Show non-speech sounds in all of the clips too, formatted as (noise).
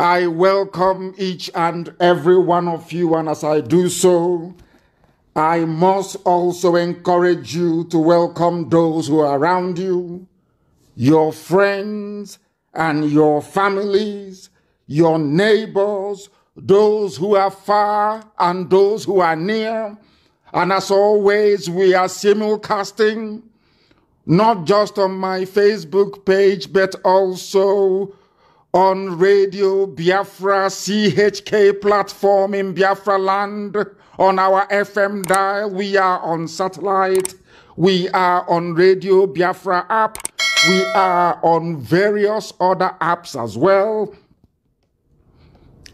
I welcome each and every one of you, and as I do so, I must also encourage you to welcome those who are around you, your friends and your families, your neighbors, those who are far and those who are near. And as always, we are simulcasting not just on my Facebook page, but also on Radio Biafra CHK platform in Biafra land, on our FM dial, we are on satellite, we are on Radio Biafra app, we are on various other apps as well.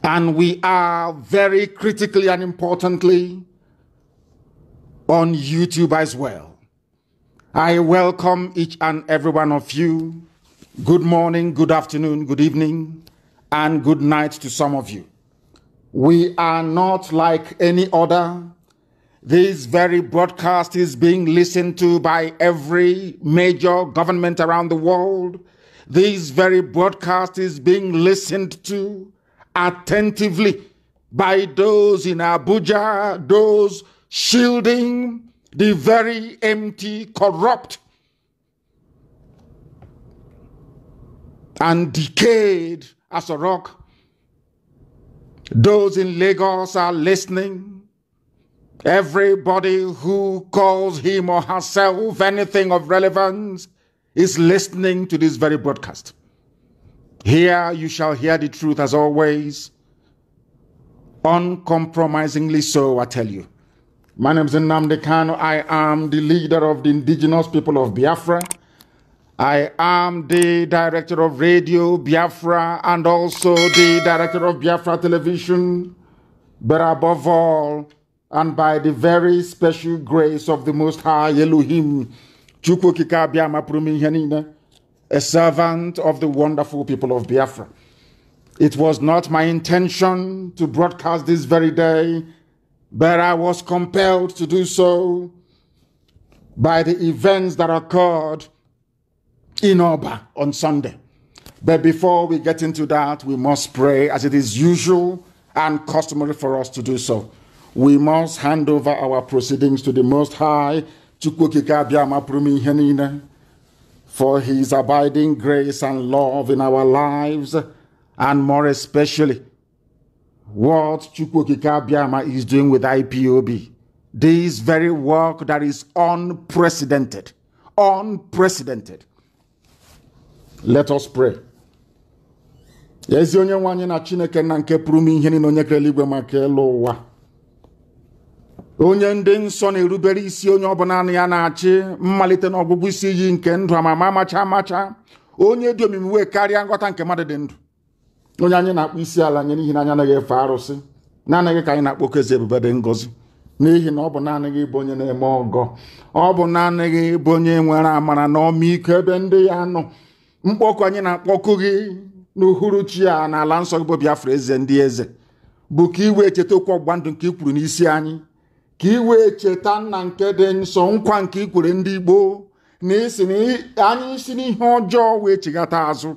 And we are very critically and importantly on YouTube as well. I welcome each and every one of you Good morning, good afternoon, good evening, and good night to some of you. We are not like any other. This very broadcast is being listened to by every major government around the world. This very broadcast is being listened to attentively by those in Abuja, those shielding the very empty, corrupt, and decayed as a rock. Those in Lagos are listening. Everybody who calls him or herself anything of relevance is listening to this very broadcast. Here you shall hear the truth as always. Uncompromisingly so, I tell you. My name is Nnamdi Kano. I am the leader of the indigenous people of Biafra. I am the director of Radio Biafra and also the director of Biafra Television, but above all, and by the very special grace of the Most High Elohim, Chukwokika Biama Prumihanina, a servant of the wonderful people of Biafra. It was not my intention to broadcast this very day, but I was compelled to do so by the events that occurred in Oba on Sunday. But before we get into that, we must pray as it is usual and customary for us to do so. We must hand over our proceedings to the Most High, for His abiding grace and love in our lives, and more especially what Chukwokika Biama is doing with IPOB. This very work that is unprecedented, unprecedented Let us pray. ezi onye nwe anyị na Chineke na nke pụrụ ime ihe niile onye kerela igwe maka elu ụwa onye ndị nsọ na-erubere isi onye ọbụla ya na-achị mmalite na ọgwụgwụ isi iyi nke ndụ amama amacha amacha onye dị omimi wee karịa nghọta nke mmadụ dị ndụ onye anyị na-akpọ isi ala nye n'ihi na anyị anaghị efe arụsị na-anaghị ka anyị na akpọ ezi ebube dị ngọzi n'ihi na ọ bụ naanị gị bụ onye na-eme ọgọ ọ bụ naanị gị bụ onye nwere amara na ọmịiko ebe ndị ya nọ mkpọkụ anyị na-akpọkụ gị n'uhuruchi a n'ala nsọ gị bụ Biafra eze ndị eze bụ ka ị wee cheta okwu ọgbụgba ndụ nke ikwuru kwuru n'isi anyị ka iwe wee cheta nna nke dị nsọ nkwa nke ikwere ndị Igbo na isi na anyị si n'ihe ọjọọ wee chighata azụ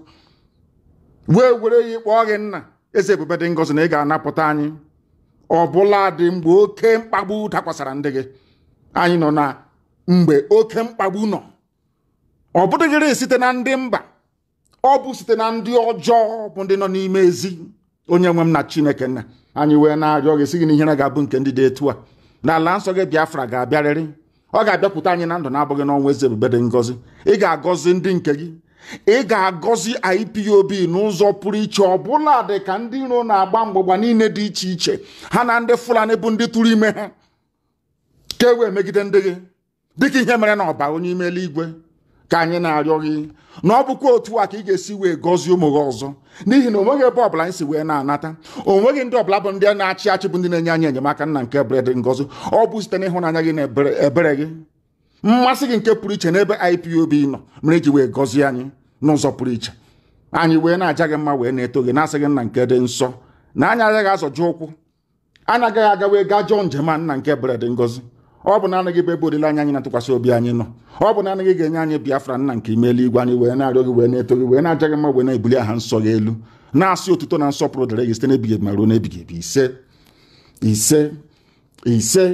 wee were ya ịkpọ gị nna eze ebube dị ngọzi na ị ga-anapụta anyị ọbụla dị mgbe oke mkpagbu dakwasara ndị gị anyị nọ na mgbe oke mkpagbu nọ ọ bụdịghịrị site na ndị mba ọ bụ site na ndị ọjọọ bụ ndị nọ n'ime ezi onye nwe m na chineke nna anyị wee na-arịọ gị sị gị na ihere ga-abụ nke ndị dị etu a na ala nsọ gị biafra ga-abịarịrị ọ ga-abịapụta anyị na ndụ na-abụghị n'ọnwa eze ebube ngọzi ị ga-agọzi ndị nke gị ị ga-agọzi IPOB n'ụzọ pụrụ iche bụla dị ka ndị iro na-agba mgbọgba niile dị iche iche ha na ndị Fulani bụ ndị tụrụ ime ha ka e wee megide ndị gị dịka ihe mere na ọba onye ime eluigwe ka anyị na-arịọ gị na ọ bụkwa otu a ka ị ga-esi wee gọzie ụmụ gị ọzọ n'ihi na onweghị ebe ọbụla anyị si wee na-anata onweghị ndị ọbụla bụ ndị na-achị achị bụ ndị na-enye anyị enyemaka nna nke ebere dị ngọzi ọ bụ site n'ịhụnanya gị na ebere gị mmasị gị nke pụrụ iche n'ebe IPOB nọ mere iji wee gọzie anyị n'ụzọ pụrụ iche anyị wee na-aja gị mma wee na-eto gị na-asị gị nna nke dị nsọ na anyị agaghị azọju ụkwụ anaghị agaghị aga wee gaa jọọ njem a nna nke ebere ngozi ọ bụ olileanya anyị na-atụkwasị obi anyị nọ ọ bụ na obi anyi no o bu anyị Biafra nna nke anyị wee na-arịọ gị wee na-eto gị wee na-aja gị mma wee na-ebuli aha nsọ gị elu na-asị otuto na nsọpụrụ dịrị gị site n'ebighị ebi ma ruo n'ebighị ebi ise ise ise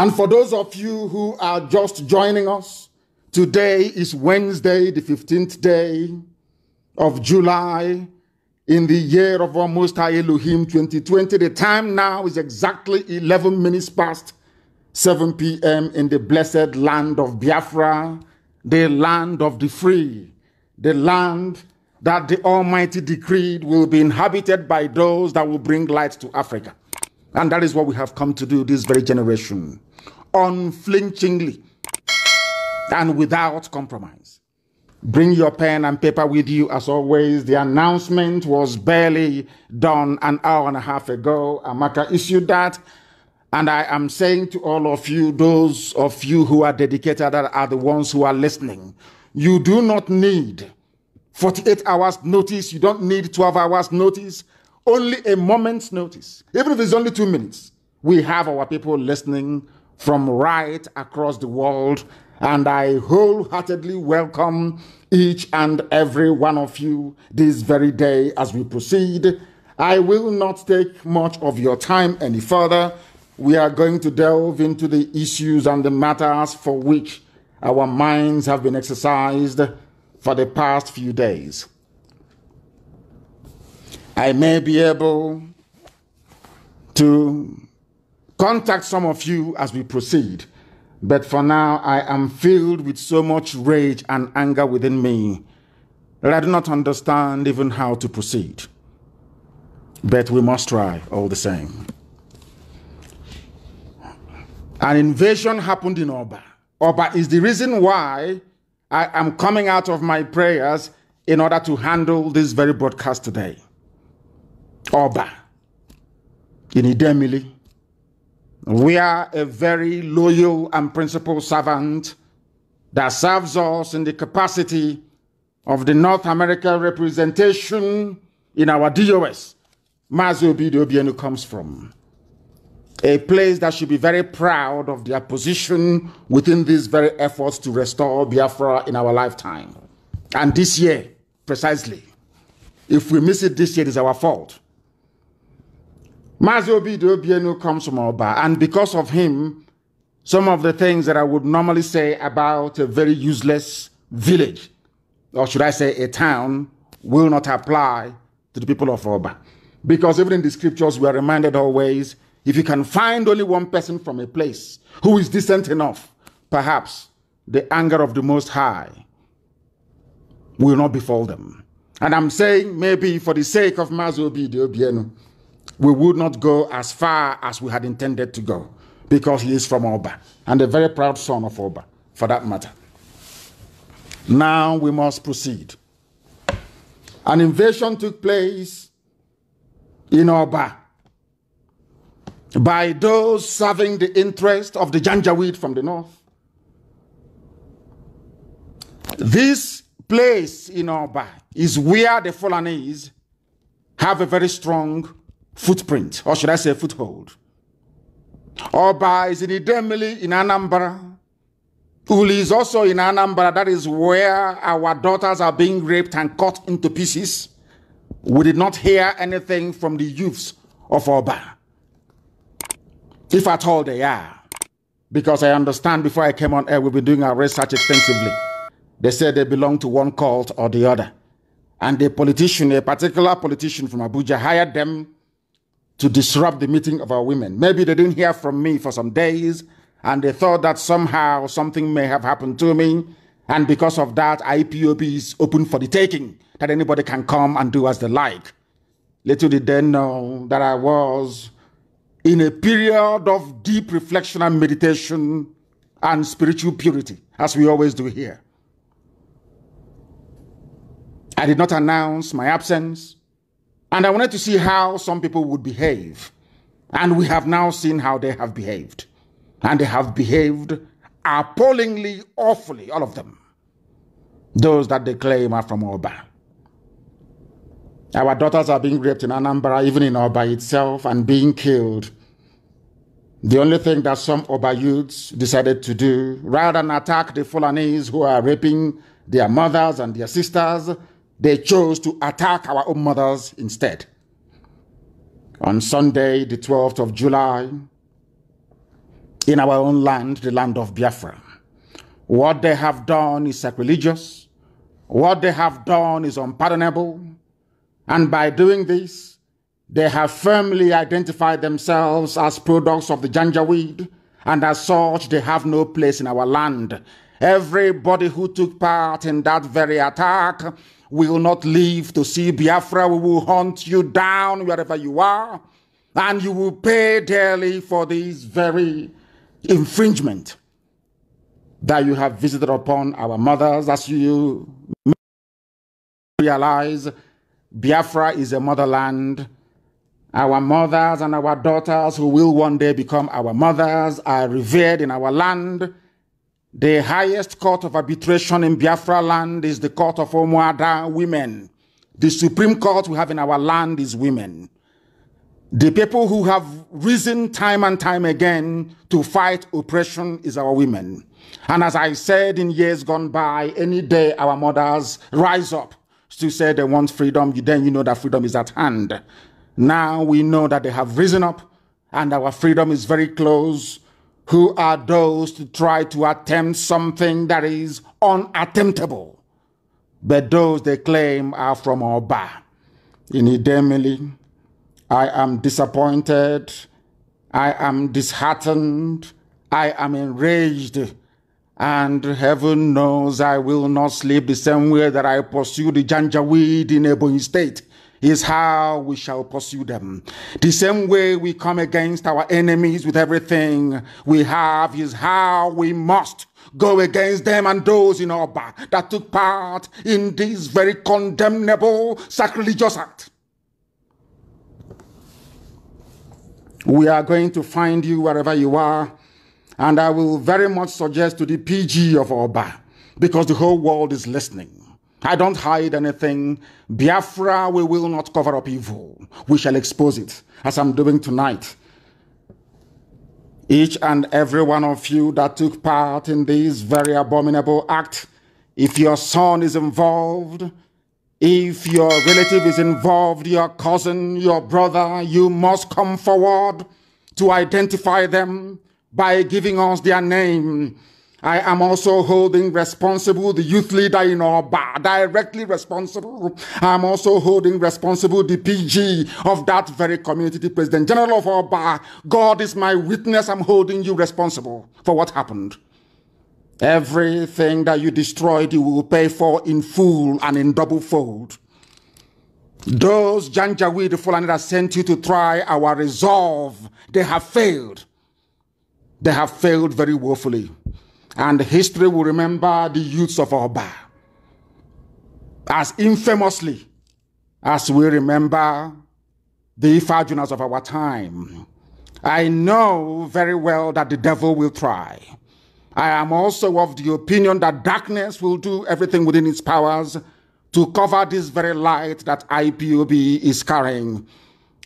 and for those of you who are just joining us today is Wednesday the 15th day of July in the year of our Most High Elohim 2020 the time now is exactly 11 minutes past 7 p.m. in the blessed land of Biafra, the land of the free, the land that the Almighty decreed will be inhabited by those that will bring light to Africa. And that is what we have come to do this very generation, unflinchingly and without compromise. Bring your pen and paper with you as always. The announcement was barely done an hour and a half ago. Amaka issued that and I am saying to all of you, those of you who are dedicated that are the ones who are listening, you do not need 48 hours notice. You don't need 12 hours notice, only a moment's notice. Even if it's only two minutes, we have our people listening from right across the world. And I wholeheartedly welcome each and every one of you this very day as we proceed. I will not take much of your time any further we are going to delve into the issues and the matters for which our minds have been exercised for the past few days. I may be able to contact some of you as we proceed, but for now I am filled with so much rage and anger within me that I do not understand even how to proceed. But we must try all the same. An invasion happened in Oba. Oba is the reason why I am coming out of my prayers in order to handle this very broadcast today. Oba in Idemili, are a very loyal and principled servant that serves us in the capacity of the North America representation in our DOS, Mazio Bidiobienu comes from a place that should be very proud of their position within these very efforts to restore Biafra in our lifetime. And this year, precisely, if we miss it this year, it is our fault. Mazi Obido Bienu comes from Oba, and because of him, some of the things that I would normally say about a very useless village, or should I say a town, will not apply to the people of Oba. Because even in the scriptures, we are reminded always if you can find only one person from a place who is decent enough, perhaps the anger of the Most High will not befall them. And I'm saying maybe for the sake of Mazobi de Obienu, we would not go as far as we had intended to go because he is from Oba and a very proud son of Oba, for that matter. Now we must proceed. An invasion took place in Oba by those serving the interest of the Janjaweed from the north. This place in Oba is where the Fulanese have a very strong footprint, or should I say foothold. Oba is in Idemili in Anambra. Uli is also in Anambra. That is where our daughters are being raped and cut into pieces. We did not hear anything from the youths of Oba if at all they are. Because I understand before I came on air, we've been doing our research extensively. They said they belong to one cult or the other. And a politician, a particular politician from Abuja, hired them to disrupt the meeting of our women. Maybe they didn't hear from me for some days, and they thought that somehow something may have happened to me. And because of that, IPOP is open for the taking, that anybody can come and do as they like. Little did they know that I was in a period of deep reflection and meditation and spiritual purity, as we always do here. I did not announce my absence, and I wanted to see how some people would behave. And we have now seen how they have behaved. And they have behaved appallingly, awfully, all of them. Those that they claim are from Oba. Our daughters are being raped in Anambra, even in Oba itself, and being killed. The only thing that some Oba youths decided to do, rather than attack the Fulanese who are raping their mothers and their sisters, they chose to attack our own mothers instead. On Sunday, the 12th of July, in our own land, the land of Biafra, what they have done is sacrilegious. What they have done is unpardonable. And by doing this, they have firmly identified themselves as products of the Janjaweed, and as such, they have no place in our land. Everybody who took part in that very attack will not live to see Biafra. We will hunt you down wherever you are, and you will pay dearly for this very infringement that you have visited upon our mothers as you realize Biafra is a motherland. Our mothers and our daughters, who will one day become our mothers, are revered in our land. The highest court of arbitration in Biafra land is the court of Omuada women. The supreme court we have in our land is women. The people who have risen time and time again to fight oppression is our women. And as I said in years gone by, any day our mothers rise up to said they want freedom, then you know that freedom is at hand. Now we know that they have risen up and our freedom is very close. Who are those to try to attempt something that is unattemptable? But those they claim are from Oba. In Idemili, I am disappointed. I am disheartened. I am enraged and heaven knows I will not sleep the same way that I pursued the Janjaweed in Ebony State is how we shall pursue them. The same way we come against our enemies with everything we have is how we must go against them and those in our that took part in this very condemnable sacrilegious act. We are going to find you wherever you are and I will very much suggest to the PG of Oba, because the whole world is listening. I don't hide anything. Biafra, we will not cover up evil. We shall expose it, as I'm doing tonight. Each and every one of you that took part in this very abominable act, if your son is involved, if your relative is involved, your cousin, your brother, you must come forward to identify them by giving us their name. I am also holding responsible the youth leader in our bar, directly responsible. I'm also holding responsible the PG of that very community, the president general of our bar. God is my witness. I'm holding you responsible for what happened. Everything that you destroyed, you will pay for in full and in double fold. Those Janjaweed Fulani that sent you to try our resolve, they have failed they have failed very woefully. And history will remember the youths of Oba as infamously as we remember the Ifajunas of our time. I know very well that the devil will try. I am also of the opinion that darkness will do everything within its powers to cover this very light that IPOB is carrying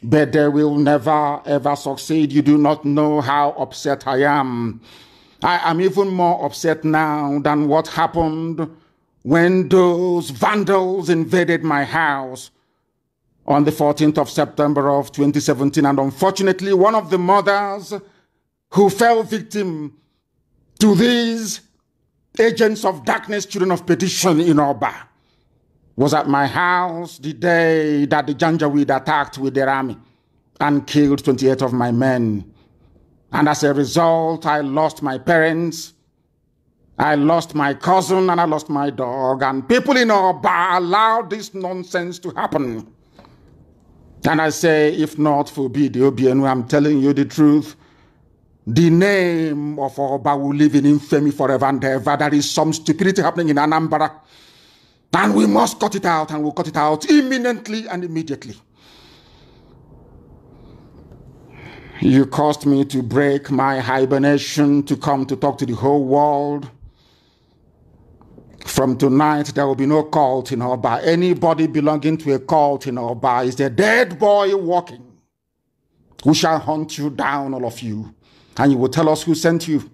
but they will never ever succeed. You do not know how upset I am. I am even more upset now than what happened when those vandals invaded my house on the 14th of September of 2017. And unfortunately, one of the mothers who fell victim to these agents of darkness, children of perdition in back was at my house the day that the Janjaweed attacked with their army and killed 28 of my men. And as a result, I lost my parents, I lost my cousin, and I lost my dog. And people in Oba allowed this nonsense to happen. And I say, if not for BDOBNU, I'm telling you the truth. The name of Oba will live in infamy forever and ever. There is some stupidity happening in Anambra. And we must cut it out and we'll cut it out imminently and immediately. You caused me to break my hibernation to come to talk to the whole world. From tonight, there will be no cult in Oba. Anybody belonging to a cult in Oba is a dead boy walking. We shall hunt you down, all of you, and you will tell us who sent you.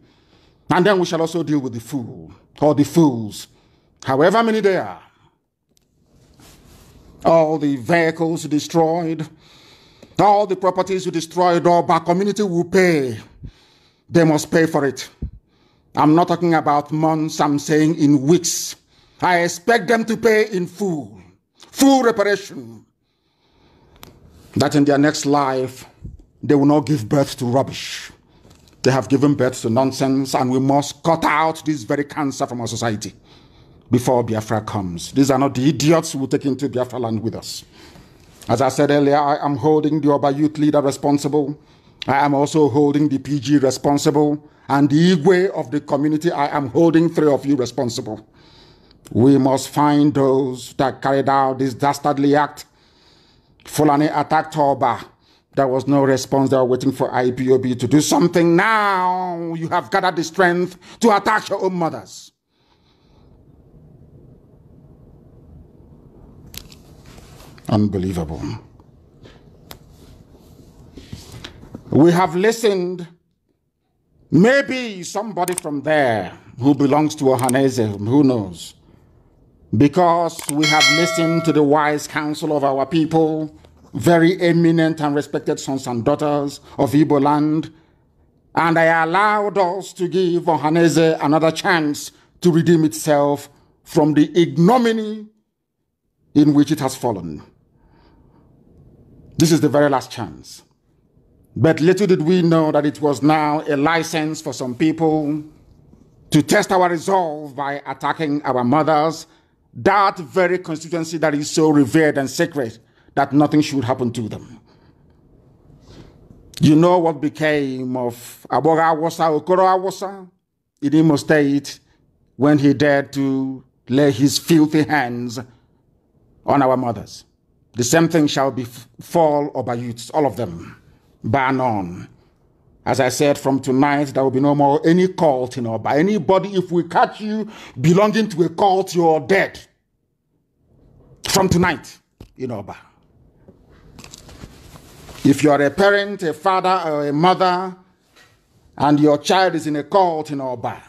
And then we shall also deal with the fool or the fools, however many they are all the vehicles destroyed, all the properties you destroyed, all our community will pay. They must pay for it. I'm not talking about months, I'm saying in weeks. I expect them to pay in full, full reparation. That in their next life, they will not give birth to rubbish. They have given birth to nonsense, and we must cut out this very cancer from our society before Biafra comes. These are not the idiots who will take into Biafra land with us. As I said earlier, I am holding the Oba youth leader responsible. I am also holding the PG responsible. And the Igwe of the community, I am holding three of you responsible. We must find those that carried out this dastardly act. Fulani attacked Oba. There was no response. They were waiting for IPOB to do something. Now you have gathered the strength to attack your own mothers. Unbelievable. We have listened. Maybe somebody from there who belongs to Ohanese, who knows? Because we have listened to the wise counsel of our people, very eminent and respected sons and daughters of Ibo land, and they allowed us to give Ohanese another chance to redeem itself from the ignominy in which it has fallen. This is the very last chance. But little did we know that it was now a license for some people to test our resolve by attacking our mothers, that very constituency that is so revered and sacred that nothing should happen to them. You know what became of Aboga Awasa, Okoro Awosa in Imo State when he dared to lay his filthy hands on our mothers. The same thing shall befall over youths, all of them, bar none. As I said, from tonight, there will be no more any cult you know, by Anybody, if we catch you belonging to a cult, you're dead. From tonight you know, Oba. If you're a parent, a father, or a mother, and your child is in a cult you know, Oba,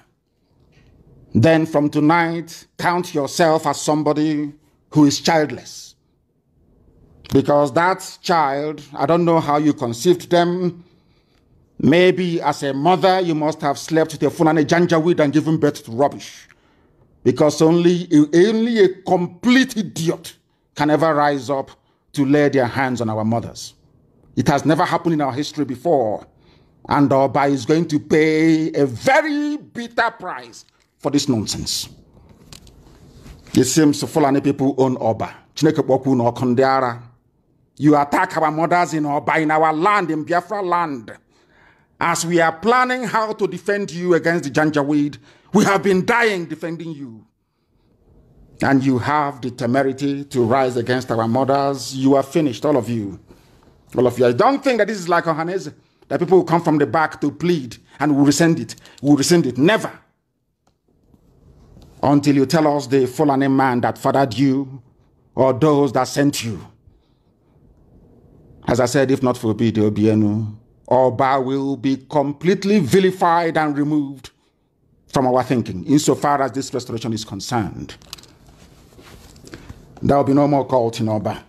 then from tonight, count yourself as somebody who is childless. Because that child, I don't know how you conceived them. Maybe as a mother, you must have slept with a a Janjaweed and given birth to rubbish. Because only, only a complete idiot can ever rise up to lay their hands on our mothers. It has never happened in our history before. And Oba is going to pay a very bitter price for this nonsense. It seems Fulani people own Oba. Chineke kpọkwu na ọkụ you attack our mothers in Oba, in our land, in Biafra land. As we are planning how to defend you against the Janjaweed, we have been dying defending you. And you have the temerity to rise against our mothers. You are finished, all of you. All of you. I don't think that this is like Ohanese, that people will come from the back to plead and will rescind it. Will rescind it. Never. Until you tell us the fallen man that fathered you or those that sent you. As I said, if not for Peter Obienu, Oba will be completely vilified and removed from our thinking, insofar as this restoration is concerned. There will be no more cult in Oba.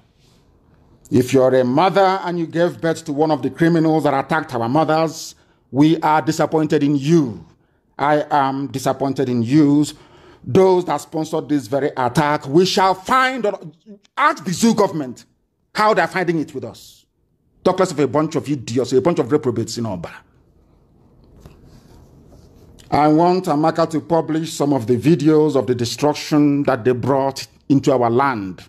If you're a mother and you gave birth to one of the criminals that attacked our mothers, we are disappointed in you. I am disappointed in you. Those that sponsored this very attack, we shall find, ask the zoo government how they're finding it with us. Talks of a bunch of idiots, a bunch of reprobates in Oba. I want Amaka to publish some of the videos of the destruction that they brought into our land.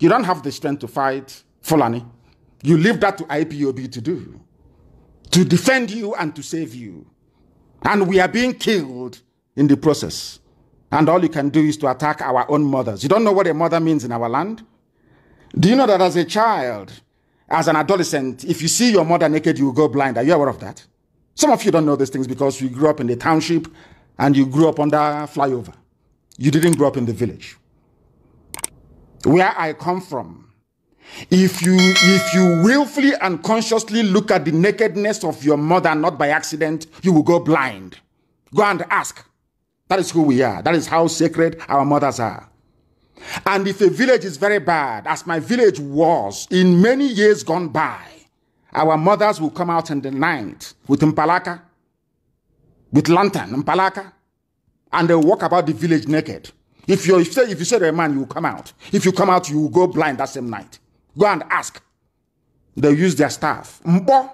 You don't have the strength to fight Fulani. You leave that to IPOB to do, to defend you and to save you. And we are being killed in the process. And all you can do is to attack our own mothers. You don't know what a mother means in our land? Do you know that as a child, as an adolescent, if you see your mother naked, you will go blind. Are you aware of that? Some of you don't know these things because you grew up in the township and you grew up under flyover. You didn't grow up in the village. Where I come from, if you, if you willfully and consciously look at the nakedness of your mother, not by accident, you will go blind. Go and ask. That is who we are. That is how sacred our mothers are. And if a village is very bad, as my village was in many years gone by, our mothers will come out in the night with mpalaka, with lantern, mpalaka, and they'll walk about the village naked. If you say if you say to a man, you will come out. If you come out, you will go blind that same night. Go and ask. They'll use their staff. Mbo,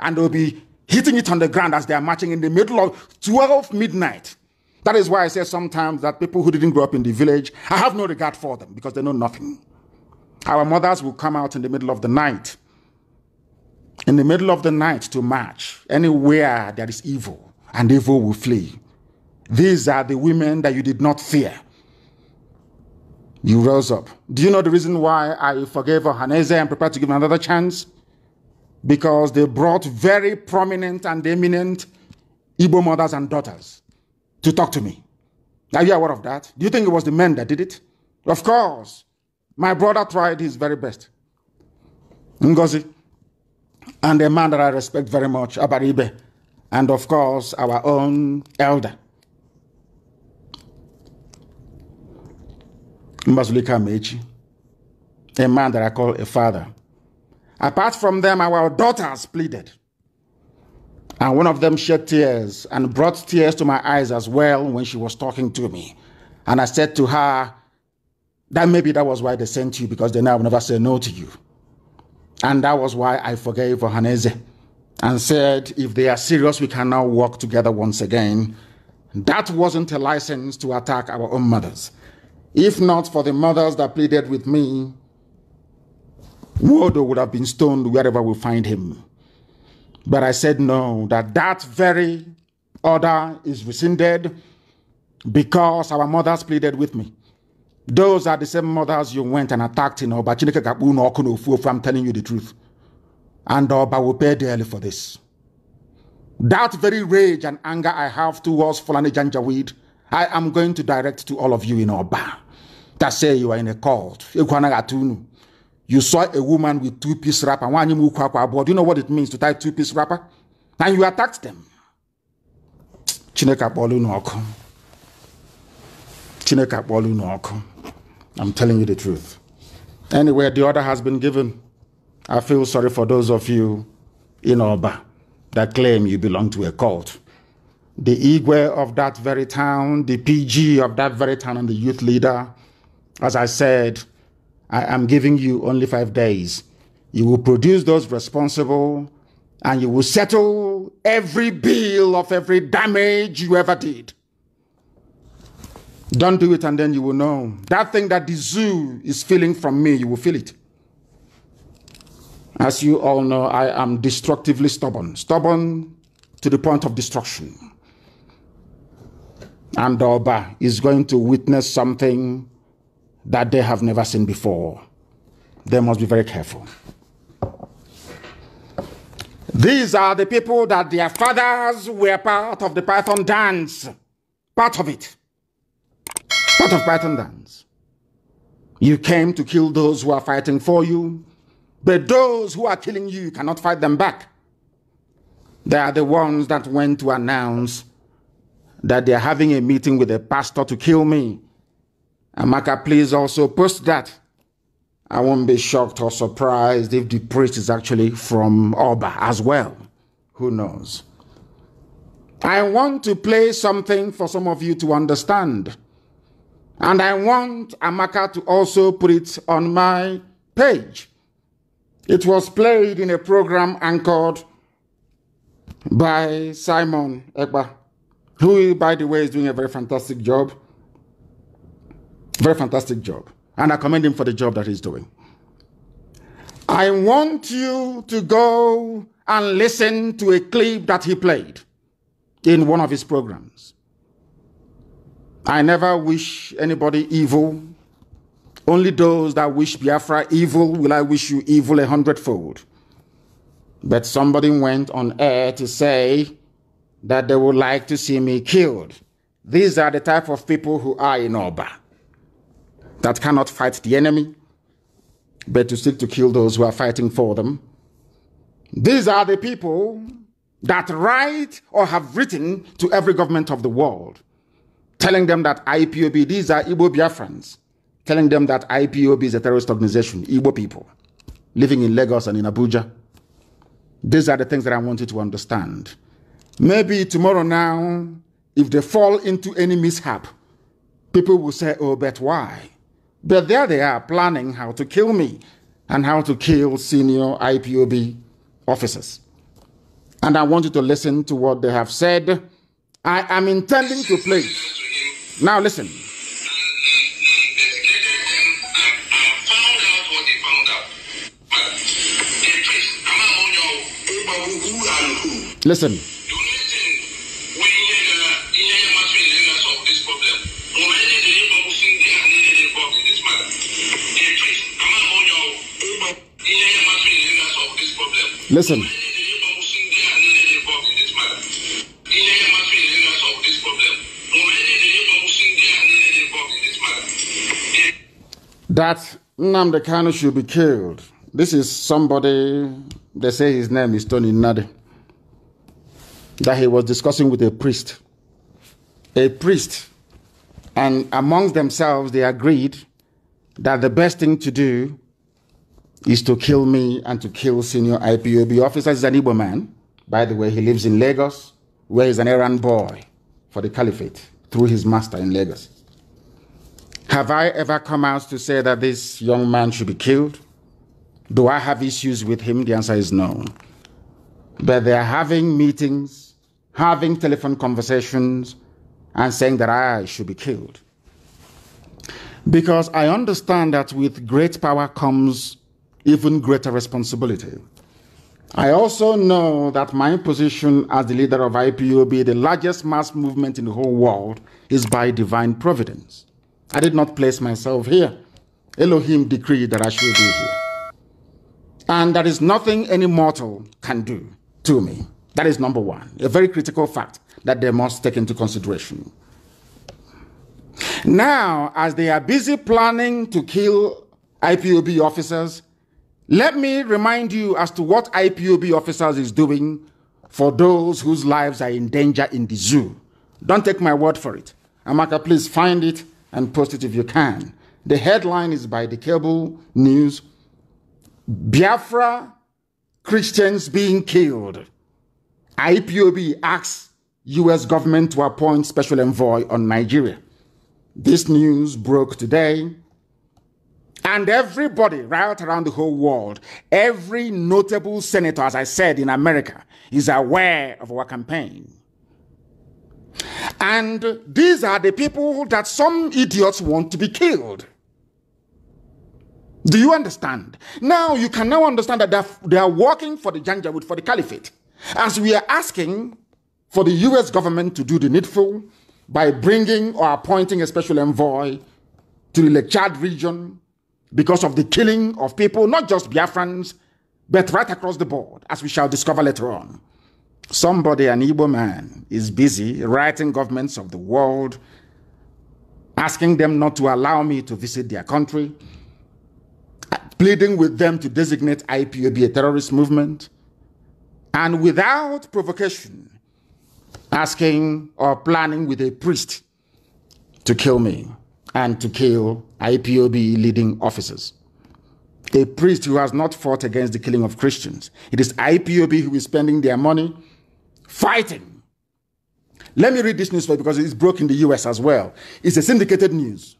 and they'll be hitting it on the ground as they are marching in the middle of 12 midnight. That is why I say sometimes that people who didn't grow up in the village, I have no regard for them because they know nothing. Our mothers will come out in the middle of the night, in the middle of the night to march anywhere that is evil, and evil will flee. These are the women that you did not fear. You rose up. Do you know the reason why I forgave Ohaneze and prepared to give him another chance? Because they brought very prominent and eminent Igbo mothers and daughters to talk to me. Are you aware of that? Do you think it was the men that did it? Of course. My brother tried his very best. Ngozi. And a man that I respect very much, Abaribe. And of course, our own elder. Mbazulika Mechi. A man that I call a father. Apart from them, our daughters pleaded. And one of them shed tears and brought tears to my eyes as well when she was talking to me. And I said to her, that maybe that was why they sent you because they now never say no to you. And that was why I forgave Ohaneze and said, if they are serious, we can now work together once again. That wasn't a license to attack our own mothers. If not for the mothers that pleaded with me, Wodo would have been stoned wherever we find him. But I said no, that that very order is rescinded because our mothers pleaded with me. Those are the same mothers you went and attacked in Oba. I'm telling you the truth. And Oba will pay dearly for this. That very rage and anger I have towards Fulani Janjaweed, I am going to direct to all of you in Oba that say you are in a cult. you saw a woman with two-piece wrapper. Do you know what it means to tie two-piece wrapper? And you attacked them. Chineke akpọọla unu Chineka Chineke akpọọla i I'm telling you the truth. Anyway, the order has been given. I feel sorry for those of you in Oba that claim you belong to a cult. The Igwe of that very town, the PG of that very town, and the youth leader, as I said, I am giving you only five days. You will produce those responsible and you will settle every bill of every damage you ever did. Don't do it and then you will know. That thing that the zoo is feeling from me, you will feel it. As you all know, I am destructively stubborn, stubborn to the point of destruction. And Oba is going to witness something that they have never seen before. They must be very careful. These are the people that their fathers were part of the Python dance, part of it, part of Python dance. You came to kill those who are fighting for you, but those who are killing you cannot fight them back. They are the ones that went to announce that they are having a meeting with a pastor to kill me. Amaka, please also post that. I won't be shocked or surprised if the priest is actually from Oba as well. Who knows? I want to play something for some of you to understand. And I want Amaka to also put it on my page. It was played in a program anchored by Simon Ekba, who, by the way, is doing a very fantastic job. Very fantastic job. And I commend him for the job that he's doing. I want you to go and listen to a clip that he played in one of his programs. I never wish anybody evil. Only those that wish Biafra evil will I wish you evil a hundredfold. But somebody went on air to say that they would like to see me killed. These are the type of people who are in Oba that cannot fight the enemy, but to seek to kill those who are fighting for them. These are the people that write or have written to every government of the world, telling them that IPOB, these are Igbo Biafrans, telling them that IPOB is a terrorist organization, Igbo people, living in Lagos and in Abuja. These are the things that I want you to understand. Maybe tomorrow now, if they fall into any mishap, people will say, oh, but why? But there they are planning how to kill me and how to kill senior IPOB officers. And I want you to listen to what they have said. I am intending to play. Now listen. Listen. Listen. That Nnamdi should be killed. This is somebody, they say his name is Tony Nade. that he was discussing with a priest. A priest. And amongst themselves, they agreed that the best thing to do is to kill me and to kill senior IPOB officers. He's an Igbo man. By the way, he lives in Lagos, where he's an errand boy for the caliphate through his master in Lagos. Have I ever come out to say that this young man should be killed? Do I have issues with him? The answer is no. But they are having meetings, having telephone conversations, and saying that I should be killed. Because I understand that with great power comes even greater responsibility. I also know that my position as the leader of IPUB, the largest mass movement in the whole world, is by divine providence. I did not place myself here. Elohim decreed that I should be here. And there is nothing any mortal can do to me. That is number one, a very critical fact that they must take into consideration. Now, as they are busy planning to kill IPOB officers let me remind you as to what IPOB officers is doing for those whose lives are in danger in the zoo. Don't take my word for it. Amaka, please find it and post it if you can. The headline is by the cable news Biafra Christians being killed. IPOB asks US government to appoint special envoy on Nigeria. This news broke today and everybody right around the whole world, every notable senator, as I said, in America, is aware of our campaign. And these are the people that some idiots want to be killed. Do you understand? Now you can now understand that they are, working for the Janjaweed, for the caliphate. As we are asking for the US government to do the needful by bringing or appointing a special envoy to the Lechad region because of the killing of people, not just Biafrans, but right across the board, as we shall discover later on. Somebody, an Igbo man, is busy writing governments of the world, asking them not to allow me to visit their country, pleading with them to designate IPOB a terrorist movement, and without provocation, asking or planning with a priest to kill me and to kill IPOB leading officers. A priest who has not fought against the killing of Christians. It is IPOB who is spending their money fighting. Let me read this newspaper because it's broke in the US as well. It's a syndicated news.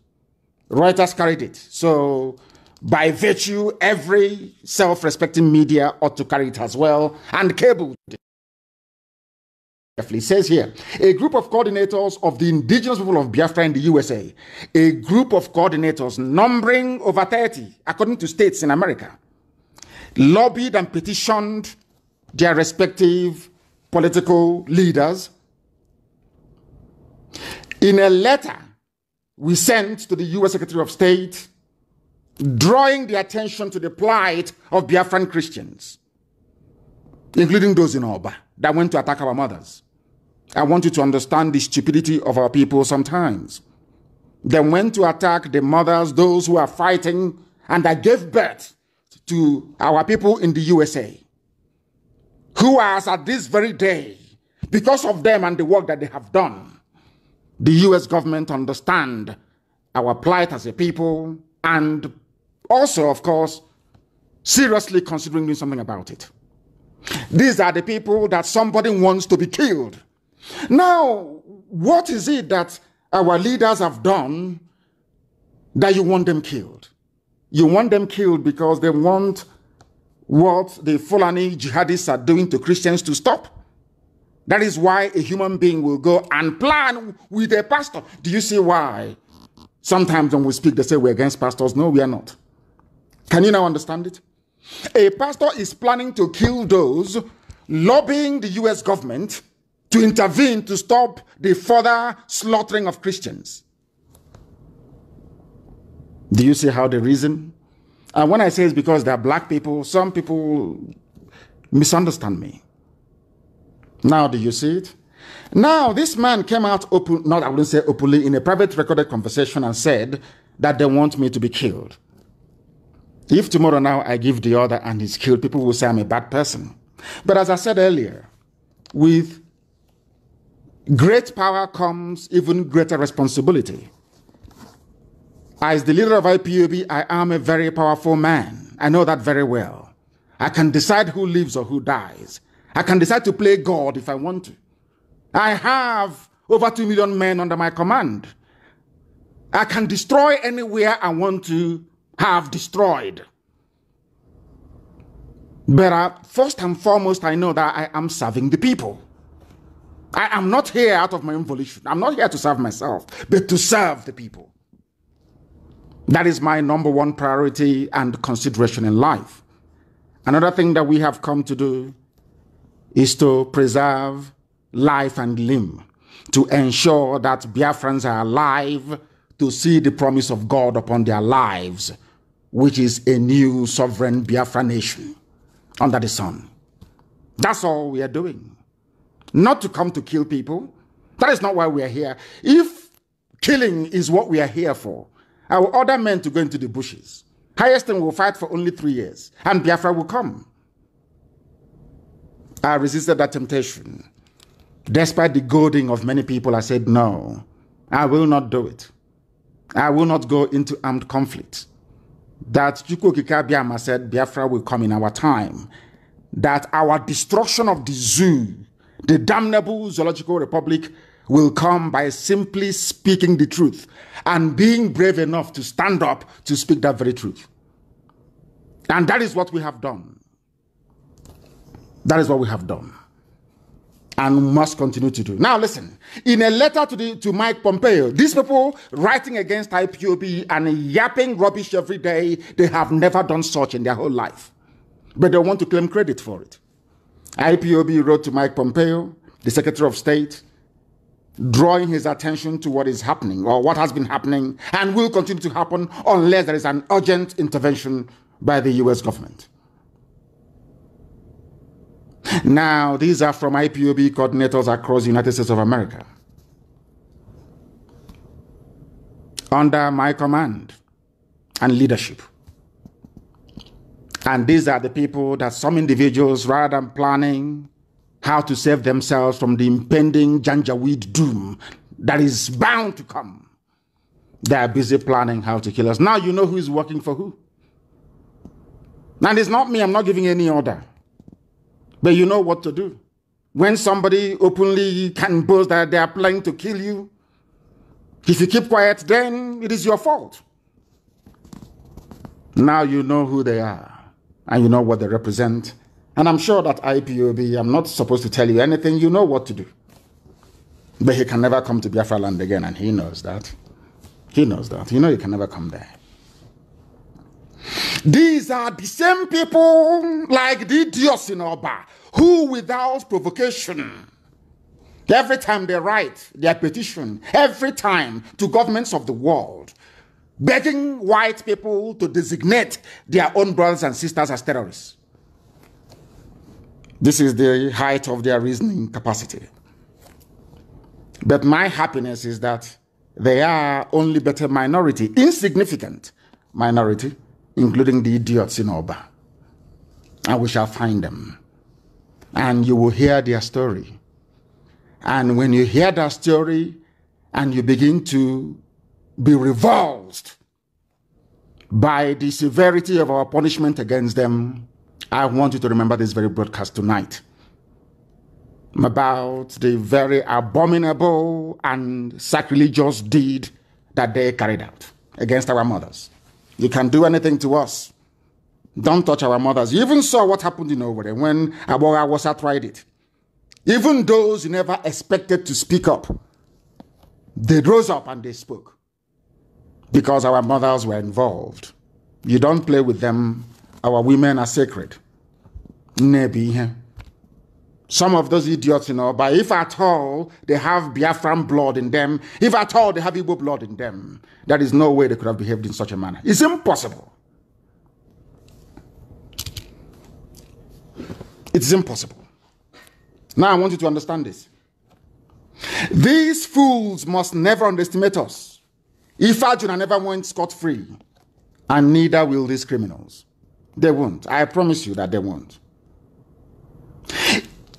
Reuters carried it. So, by virtue, every self respecting media ought to carry it as well and cable. It says here, a group of coordinators of the indigenous people of Biafra in the USA, a group of coordinators numbering over 30, according to states in America, lobbied and petitioned their respective political leaders in a letter we sent to the US Secretary of State, drawing the attention to the plight of Biafran Christians, including those in Oba that went to attack our mothers. I want you to understand the stupidity of our people sometimes. They went to attack the mothers, those who are fighting, and that gave birth to our people in the USA, who are at this very day, because of them and the work that they have done, the US government understand our plight as a people and also, of course, seriously considering doing something about it. These are the people that somebody wants to be killed now, what is it that our leaders have done that you want them killed? You want them killed because they want what the Fulani jihadists are doing to Christians to stop. That is why a human being will go and plan with a pastor. Do you see why? Sometimes when we speak, they say we're against pastors. No, we are not. Can you now understand it? A pastor is planning to kill those lobbying the US government to intervene to stop the further slaughtering of Christians. Do you see how they reason? And when I say it's because they're black people, some people misunderstand me. Now, do you see it? Now, this man came out open, not I wouldn't say openly, in a private recorded conversation and said that they want me to be killed. If tomorrow now I give the order and he's killed, people will say I'm a bad person. But as I said earlier, with Great power comes even greater responsibility. As the leader of IPOB, I am a very powerful man. I know that very well. I can decide who lives or who dies. I can decide to play God if I want to. I have over 2 million men under my command. I can destroy anywhere I want to have destroyed. But I, uh, first and foremost, I know that I am serving the people. I am not here out of my own volition. I'm not here to serve myself, but to serve the people. That is my number one priority and consideration in life. Another thing that we have come to do is to preserve life and limb, to ensure that Biafrans are alive to see the promise of God upon their lives, which is a new sovereign Biafra nation under the sun. That's all we are doing not to come to kill people. That is not why we are here. If killing is what we are here for, I will order men to go into the bushes. Higheston will fight for only three years, and Biafra will come. I resisted that temptation. Despite the goading of many people, I said, no, I will not do it. I will not go into armed conflict. That Chukwokika said, Biafra will come in our time. That our destruction of the zoo the damnable Zoological Republic will come by simply speaking the truth and being brave enough to stand up to speak that very truth. And that is what we have done. That is what we have done and must continue to do. Now, listen, in a letter to, the, to Mike Pompeo, these people writing against IPOB and yapping rubbish every day, they have never done such in their whole life. But they want to claim credit for it. IPOB wrote to Mike Pompeo, the Secretary of State, drawing his attention to what is happening or what has been happening and will continue to happen unless there is an urgent intervention by the US government. Now, these are from IPOB coordinators across the United States of America. Under my command and leadership, and these are the people that some individuals, rather than planning how to save themselves from the impending Janjaweed doom that is bound to come, they are busy planning how to kill us. Now you know who is working for who. And it's not me, I'm not giving any order. But you know what to do. When somebody openly can boast that they are planning to kill you, if you keep quiet, then it is your fault. Now you know who they are and you know what they represent. And I'm sure that IPOB, I'm not supposed to tell you anything, you know what to do. But he can never come to Biafra land again, and he knows that. He knows that. You know he can never come there. These are the same people like the Dios in Oba who, without provocation, every time they write their petition, every time to governments of the world, begging white people to designate their own brothers and sisters as terrorists. This is the height of their reasoning capacity. But my happiness is that they are only but a minority, insignificant minority, including the idiots in Oba. And we shall find them. And you will hear their story. And when you hear that story and you begin to be revulsed by the severity of our punishment against them, I want you to remember this very broadcast tonight about the very abominable and sacrilegious deed that they carried out against our mothers. You can do anything to us. Don't touch our mothers. You even saw what happened in Owerri when Abora was tried it. Even those you never expected to speak up, they rose up and they spoke because our mothers were involved. You don't play with them. Our women are sacred. Some of those idiots, you know, but if at all they have Biafran blood in them, if at all they have Igbo blood in them, there is no way they could have behaved in such a manner. It's impossible. It's impossible. Now I want you to understand this. These fools must never underestimate us. If Ifajuna never went scot free, and neither will these criminals. They won't. I promise you that they won't.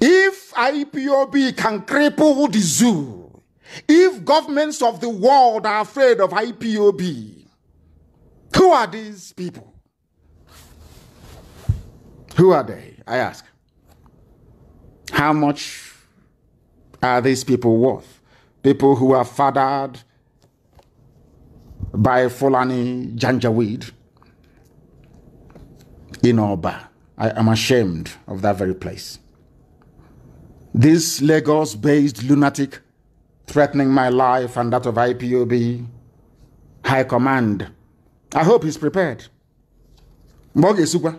If IPOB can cripple the zoo, if governments of the world are afraid of IPOB, who are these people? Who are they? I ask. How much are these people worth? People who have fathered by Fulani Janjaweed in Oba. I am ashamed of that very place. This Lagos based lunatic threatening my life and that of IPOB High Command. I hope he's prepared. Mboge Super.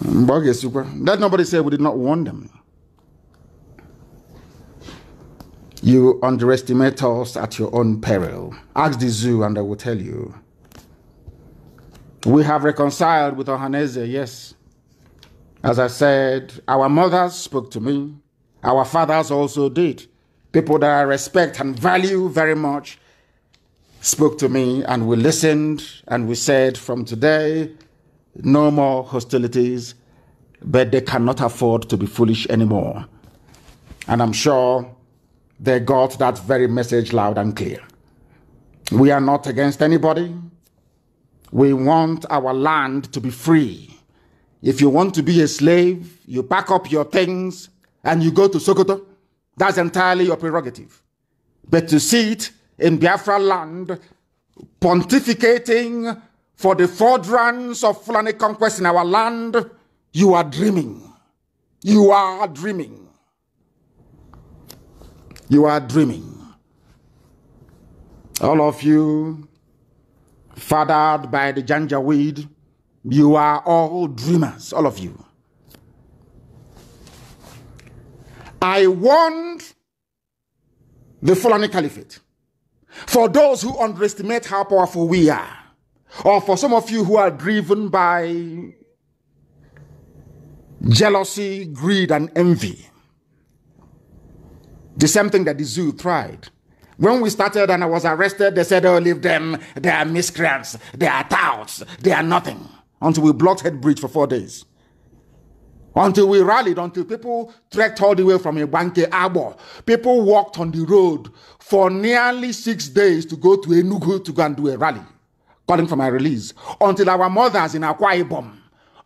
Mboge Super. Let nobody say we did not warn them. You underestimate us at your own peril. Ask the zoo and I will tell you. We have reconciled with Ohaneze, yes. As I said, our mothers spoke to me. Our fathers also did. People that I respect and value very much spoke to me and we listened and we said from today no more hostilities but they cannot afford to be foolish anymore and i'm sure they got that very message loud and clear. We are not against anybody. We want our land to be free. If you want to be a slave, you pack up your things and you go to Sokoto. That's entirely your prerogative. But to see it in Biafra land, pontificating for the furtherance of Fulani conquest in our land, you are dreaming. You are dreaming. You are dreaming. All of you, fathered by the weed. you are all dreamers, all of you. I warned the Fulani Caliphate. For those who underestimate how powerful we are, or for some of you who are driven by jealousy, greed, and envy, the same thing that the zoo tried. When we started and I was arrested, they said, oh, leave them. They are miscreants. They are touts. They are nothing. Until we blocked Head Bridge for four days. Until we rallied, until people trekked all the way from Ibanke Arbor. People walked on the road for nearly six days to go to Enugu to go and do a rally, calling for my release. Until our mothers in Akwa Ibom,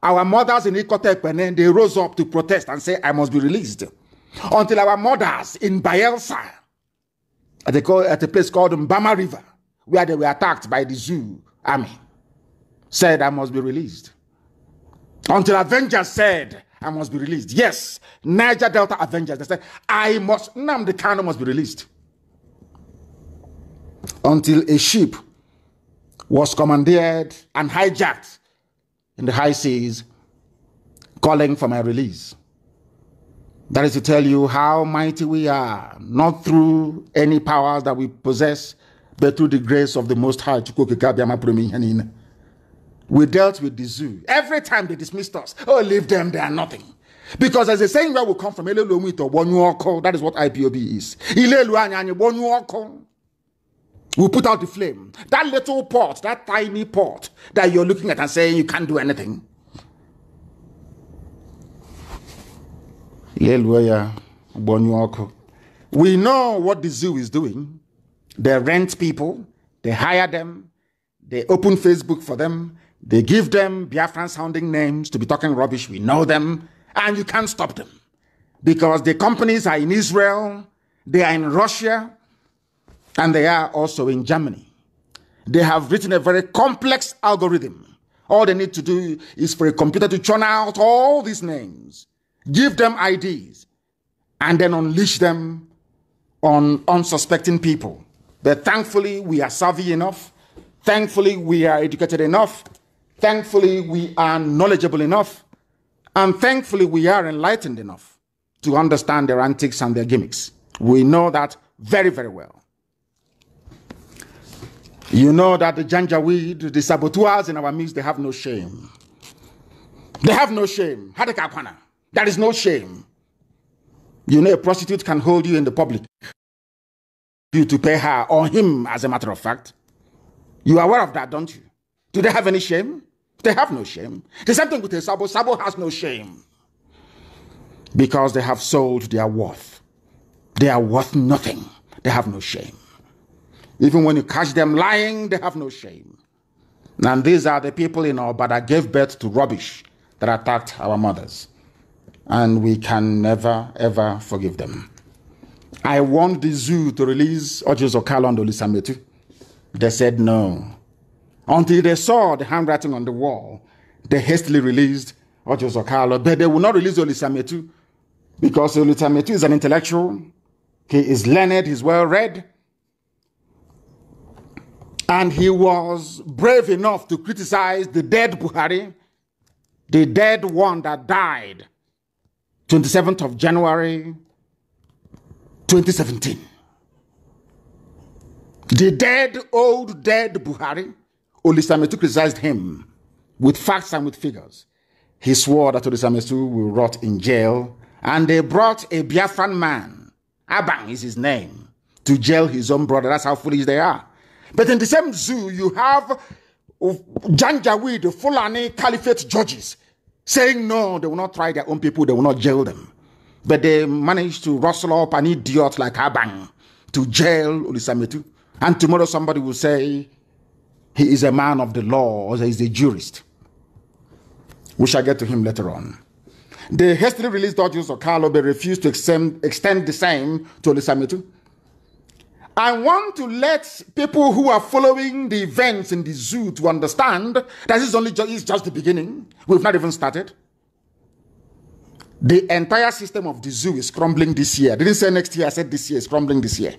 our mothers in Ikotepene, they rose up to protest and say, I must be released until our mothers in Bielsa, at a, at a place called Mbama River, where they were attacked by the Zoo army, said, I must be released. Until Avengers said, I must be released. Yes, Niger Delta Avengers, they said, I must, Nam the Kano must be released. Until a ship was commandeered and hijacked in the high seas, calling for my release. That is to tell you how mighty we are, not through any powers that we possess, but through the grace of the Most High. We dealt with the zoo. Every time they dismissed us, oh, leave them, they are nothing. Because as the saying where we come from, that is what IPOB is. We put out the flame. That little pot, that tiny pot that you're looking at and saying you can't do anything. we know what the zoo is doing they rent people they hire them they open facebook for them they give them biafran sounding names to be talking rubbish we know them and you can't stop them because the companies are in israel they are in russia and they are also in germany they have written a very complex algorithm all they need to do is for a computer to churn out all these names give them IDs, and then unleash them on unsuspecting people. But thankfully, we are savvy enough. Thankfully, we are educated enough. Thankfully, we are knowledgeable enough. And thankfully, we are enlightened enough to understand their antics and their gimmicks. We know that very, very well. You know that the Janjaweed, the saboteurs in our midst, they have no shame. They have no shame. Hadekakwana. That is no shame. You know, a prostitute can hold you in the public, you to pay her or him, as a matter of fact. You are aware of that, don't you? Do they have any shame? They have no shame. The same thing with a Sabo. Sabo has no shame because they have sold their worth. They are worth nothing. They have no shame. Even when you catch them lying, they have no shame. And these are the people in our that gave birth to rubbish that attacked our mothers and we can never, ever forgive them. I want the zoo to release Ojizo Okalo and Olisametu. They said no. Until they saw the handwriting on the wall, they hastily released Ojizo Okalo, but they will not release Olisametu because Olisametu is an intellectual. He is learned, he's well read. And he was brave enough to criticize the dead Buhari, the dead one that died 27th of January 2017. The dead, old, dead Buhari, Olisametu criticized him with facts and with figures. He swore that Olisametu will rot in jail, and they brought a Biafran man, Abang is his name, to jail his own brother. That's how foolish they are. But in the same zoo, you have Janjaweed, Fulani Caliphate judges saying no, they will not try their own people, they will not jail them. But they managed to rustle up an idiot like Abang to jail Ulisametu. And tomorrow somebody will say he is a man of the law or he is a jurist. We shall get to him later on. The hastily released documents of Carlo refused to extend, extend the same to Ulisametu I want to let people who are following the events in the zoo to understand that this is only just, it's just the beginning. We've not even started. The entire system of the zoo is crumbling this year. I didn't say next year, I said this year is crumbling this year.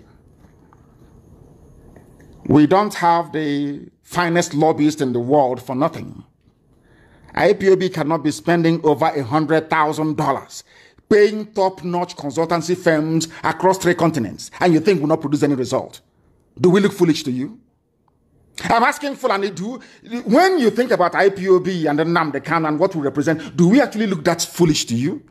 We don't have the finest lobbyist in the world for nothing. IPOB cannot be spending over a $100,000 paying top-notch consultancy firms across three continents, and you think will not produce any result. Do we look foolish to you? I'm asking Fulani, do, when you think about IPOB and the NAM, the CAN, and what we represent, do we actually look that foolish to you?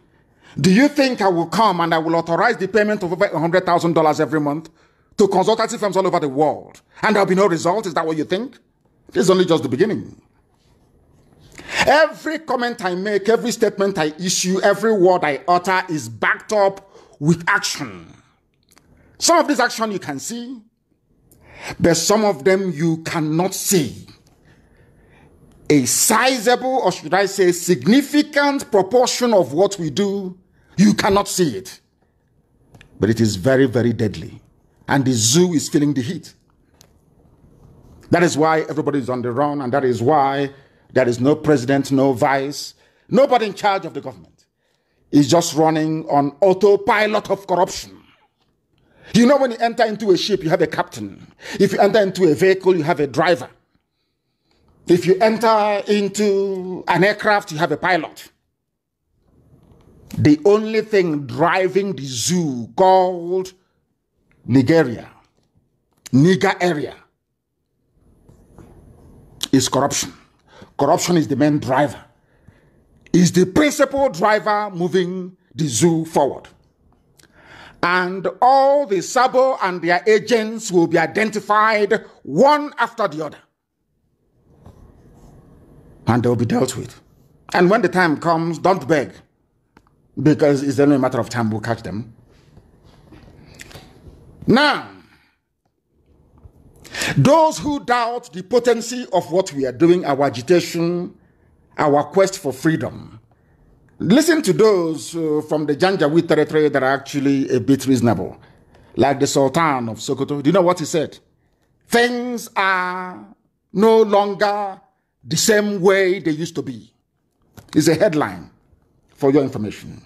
Do you think I will come and I will authorize the payment of over $100,000 every month to consultancy firms all over the world and there'll be no result? Is that what you think? This is only just the beginning. Every comment I make, every statement I issue, every word I utter is backed up with action. Some of this action you can see, but some of them you cannot see. A sizable, or should I say, significant proportion of what we do, you cannot see it. But it is very, very deadly. And the zoo is feeling the heat. That is why everybody is on the run, and that is why there is no president, no vice, nobody in charge of the government. It's just running on autopilot of corruption. You know, when you enter into a ship, you have a captain. If you enter into a vehicle, you have a driver. If you enter into an aircraft, you have a pilot. The only thing driving the zoo called Nigeria, Niger area, is corruption. Corruption is the main driver, is the principal driver moving the zoo forward. And all the Sabo and their agents will be identified one after the other. And they'll be dealt with. And when the time comes, don't beg, because it's only a matter of time we'll catch them. Now, those who doubt the potency of what we are doing, our agitation, our quest for freedom, listen to those uh, from the Janjaweed territory that are actually a bit reasonable, like the Sultan of Sokoto. Do you know what he said? Things are no longer the same way they used to be. It's a headline for your information.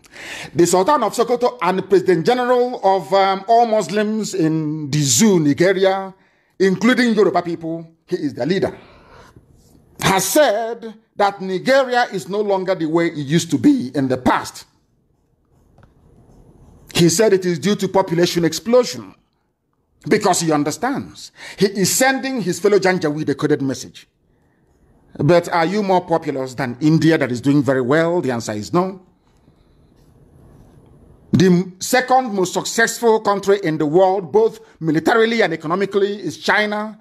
The Sultan of Sokoto and President General of um, all Muslims in the Nigeria, including Yoruba people, he is the leader, has said that Nigeria is no longer the way it used to be in the past. He said it is due to population explosion because he understands. He is sending his fellow Janjaweed a coded message. But are you more populous than India that is doing very well? The answer is no. The second most successful country in the world, both militarily and economically, is China,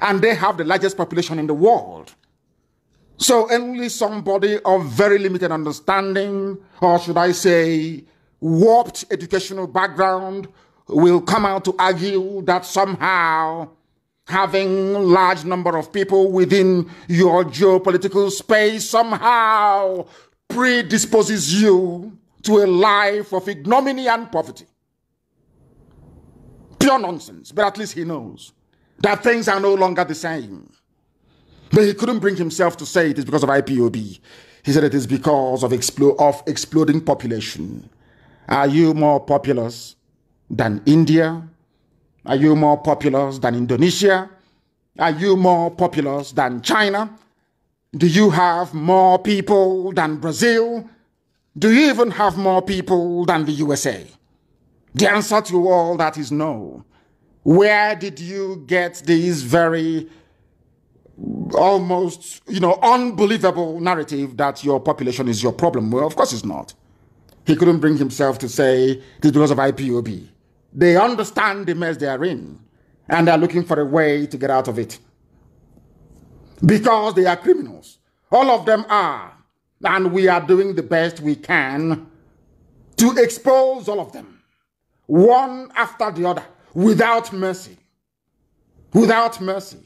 and they have the largest population in the world. So only somebody of very limited understanding, or should I say, warped educational background, will come out to argue that somehow having large number of people within your geopolitical space somehow predisposes you to a life of ignominy and poverty. Pure nonsense, but at least he knows that things are no longer the same. But he couldn't bring himself to say it is because of IPOB. He said it is because of, expl of exploding population. Are you more populous than India? Are you more populous than Indonesia? Are you more populous than China? Do you have more people than Brazil? Do you even have more people than the USA? The answer to all that is no. Where did you get these very almost, you know, unbelievable narrative that your population is your problem? Well, of course it's not. He couldn't bring himself to say this because of IPOB. They understand the mess they are in and they're looking for a way to get out of it. Because they are criminals. All of them are. And we are doing the best we can to expose all of them, one after the other, without mercy. Without mercy.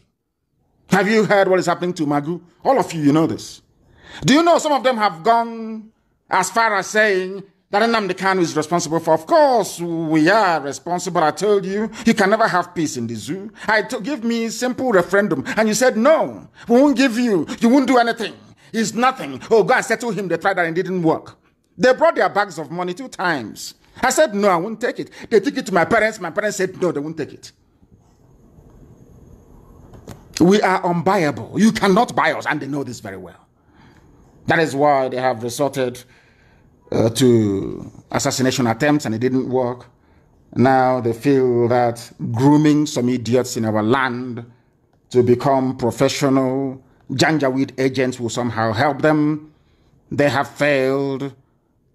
Have you heard what is happening to Magu? All of you, you know this. Do you know some of them have gone as far as saying that Nnamdi Kanu is responsible for? Of course, we are responsible. I told you, you can never have peace in the zoo. to give me simple referendum, and you said no. We won't give you. You won't do anything. It's nothing. Oh, go and settle him. They tried that and it didn't work. They brought their bags of money two times. I said, no, I won't take it. They took it to my parents. My parents said, no, they won't take it. We are unbuyable. You cannot buy us. And they know this very well. That is why they have resorted uh, to assassination attempts and it didn't work. Now they feel that grooming some idiots in our land to become professional Janjaweed agents will somehow help them. They have failed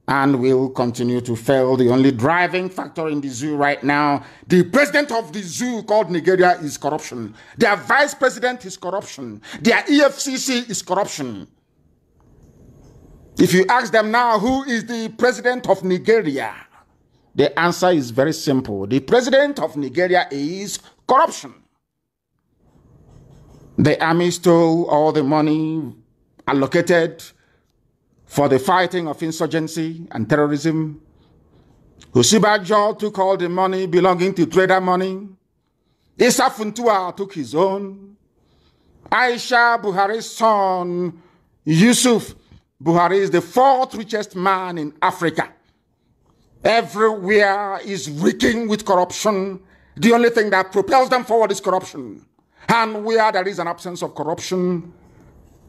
and will continue to fail. The only driving factor in the zoo right now, the president of the zoo called Nigeria is corruption. Their vice president is corruption. Their EFCC is corruption. If you ask them now who is the president of Nigeria, the answer is very simple. The president of Nigeria is corruption. The army stole all the money allocated for the fighting of insurgency and terrorism. Usibajo took all the money belonging to trader money. Issa Funtua took his own. Aisha Buhari's son, Yusuf Buhari, is the fourth richest man in Africa. Everywhere is reeking with corruption. The only thing that propels them forward is corruption. And where there is an absence of corruption,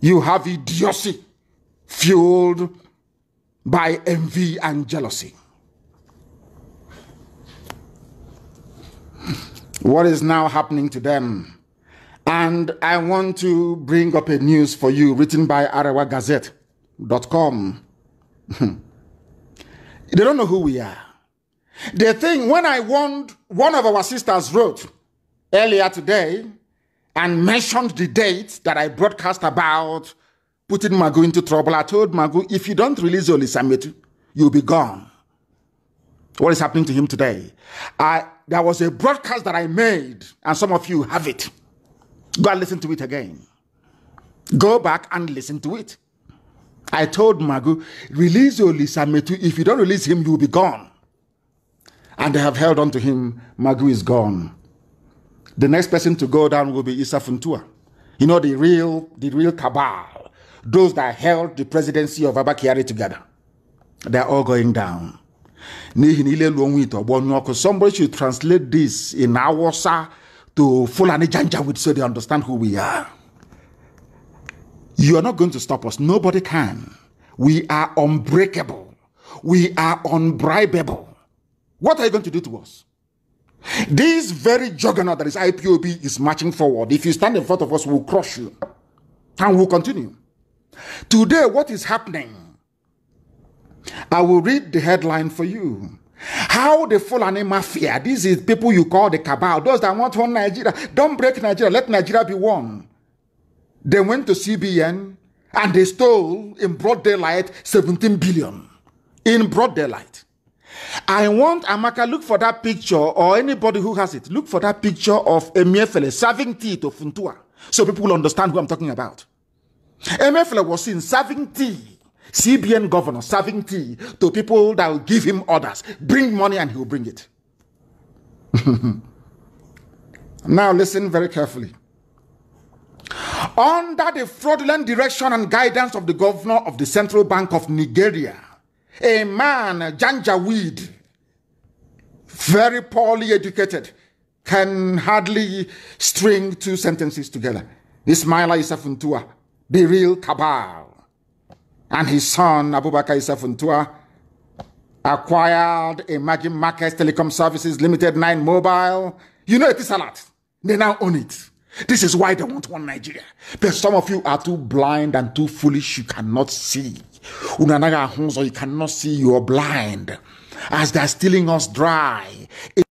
you have idiocy fueled by envy and jealousy. What is now happening to them? And I want to bring up a news for you written by arawagazette.com. (laughs) they don't know who we are. The thing when I warned, one of our sisters wrote earlier today and mentioned the date that I broadcast about putting Magu into trouble. I told Magu, if you don't release Olisametu, you'll be gone. What is happening to him today? I, there was a broadcast that I made, and some of you have it. Go and listen to it again. Go back and listen to it. I told Magu, release Olisametu. If you don't release him, you'll be gone. And they have held on to him. Magu is gone. The next person to go down will be Issa Funtua. You know, the real, the real cabal, those that held the presidency of Abakiari together. They're all going down. Somebody should translate this in Awasa to Fulani Janjawid so they understand who we are. You are not going to stop us. Nobody can. We are unbreakable. We are unbribable. What are you going to do to us? This very juggernaut that is IPOB is marching forward. If you stand in front of us, we'll crush you. And we'll continue. Today, what is happening? I will read the headline for you. How the Fulani Mafia, this is people you call the cabal, those that want one Nigeria, don't break Nigeria, let Nigeria be one. They went to CBN and they stole in broad daylight 17 billion. In broad daylight. I want Amaka look for that picture or anybody who has it. Look for that picture of Emiefele serving tea to Funtua so people will understand who I'm talking about. Emiefele was seen serving tea, CBN governor serving tea to people that will give him orders. Bring money and he'll bring it. (laughs) now listen very carefully. Under the fraudulent direction and guidance of the governor of the Central Bank of Nigeria, a man, Janjaweed, very poorly educated, can hardly string two sentences together. Ismaila Isafuntua, the real and his son, Abubakar Isafuntua, acquired Imagine Markets Telecom Services Limited 9 Mobile. You know it is a lot. They now own it. This is why they want one Nigeria. But some of you are too blind and too foolish, you cannot see you cannot see you are blind as they are stealing us dry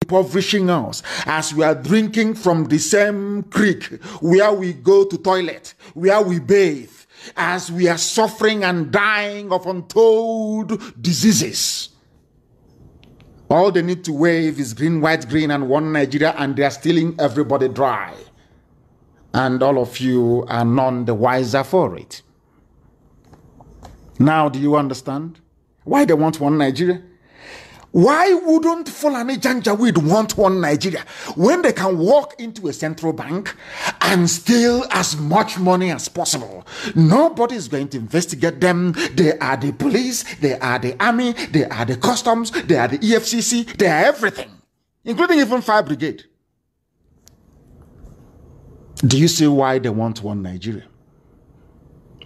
impoverishing us as we are drinking from the same creek where we go to toilet where we bathe as we are suffering and dying of untold diseases all they need to wave is green white green and one nigeria and they are stealing everybody dry and all of you are none the wiser for it now, do you understand why they want one Nigeria? Why wouldn't Fulani Janjaweed want one Nigeria when they can walk into a central bank and steal as much money as possible? Nobody is going to investigate them. They are the police, they are the army, they are the customs, they are the EFCC, they are everything, including even fire brigade. Do you see why they want one Nigeria?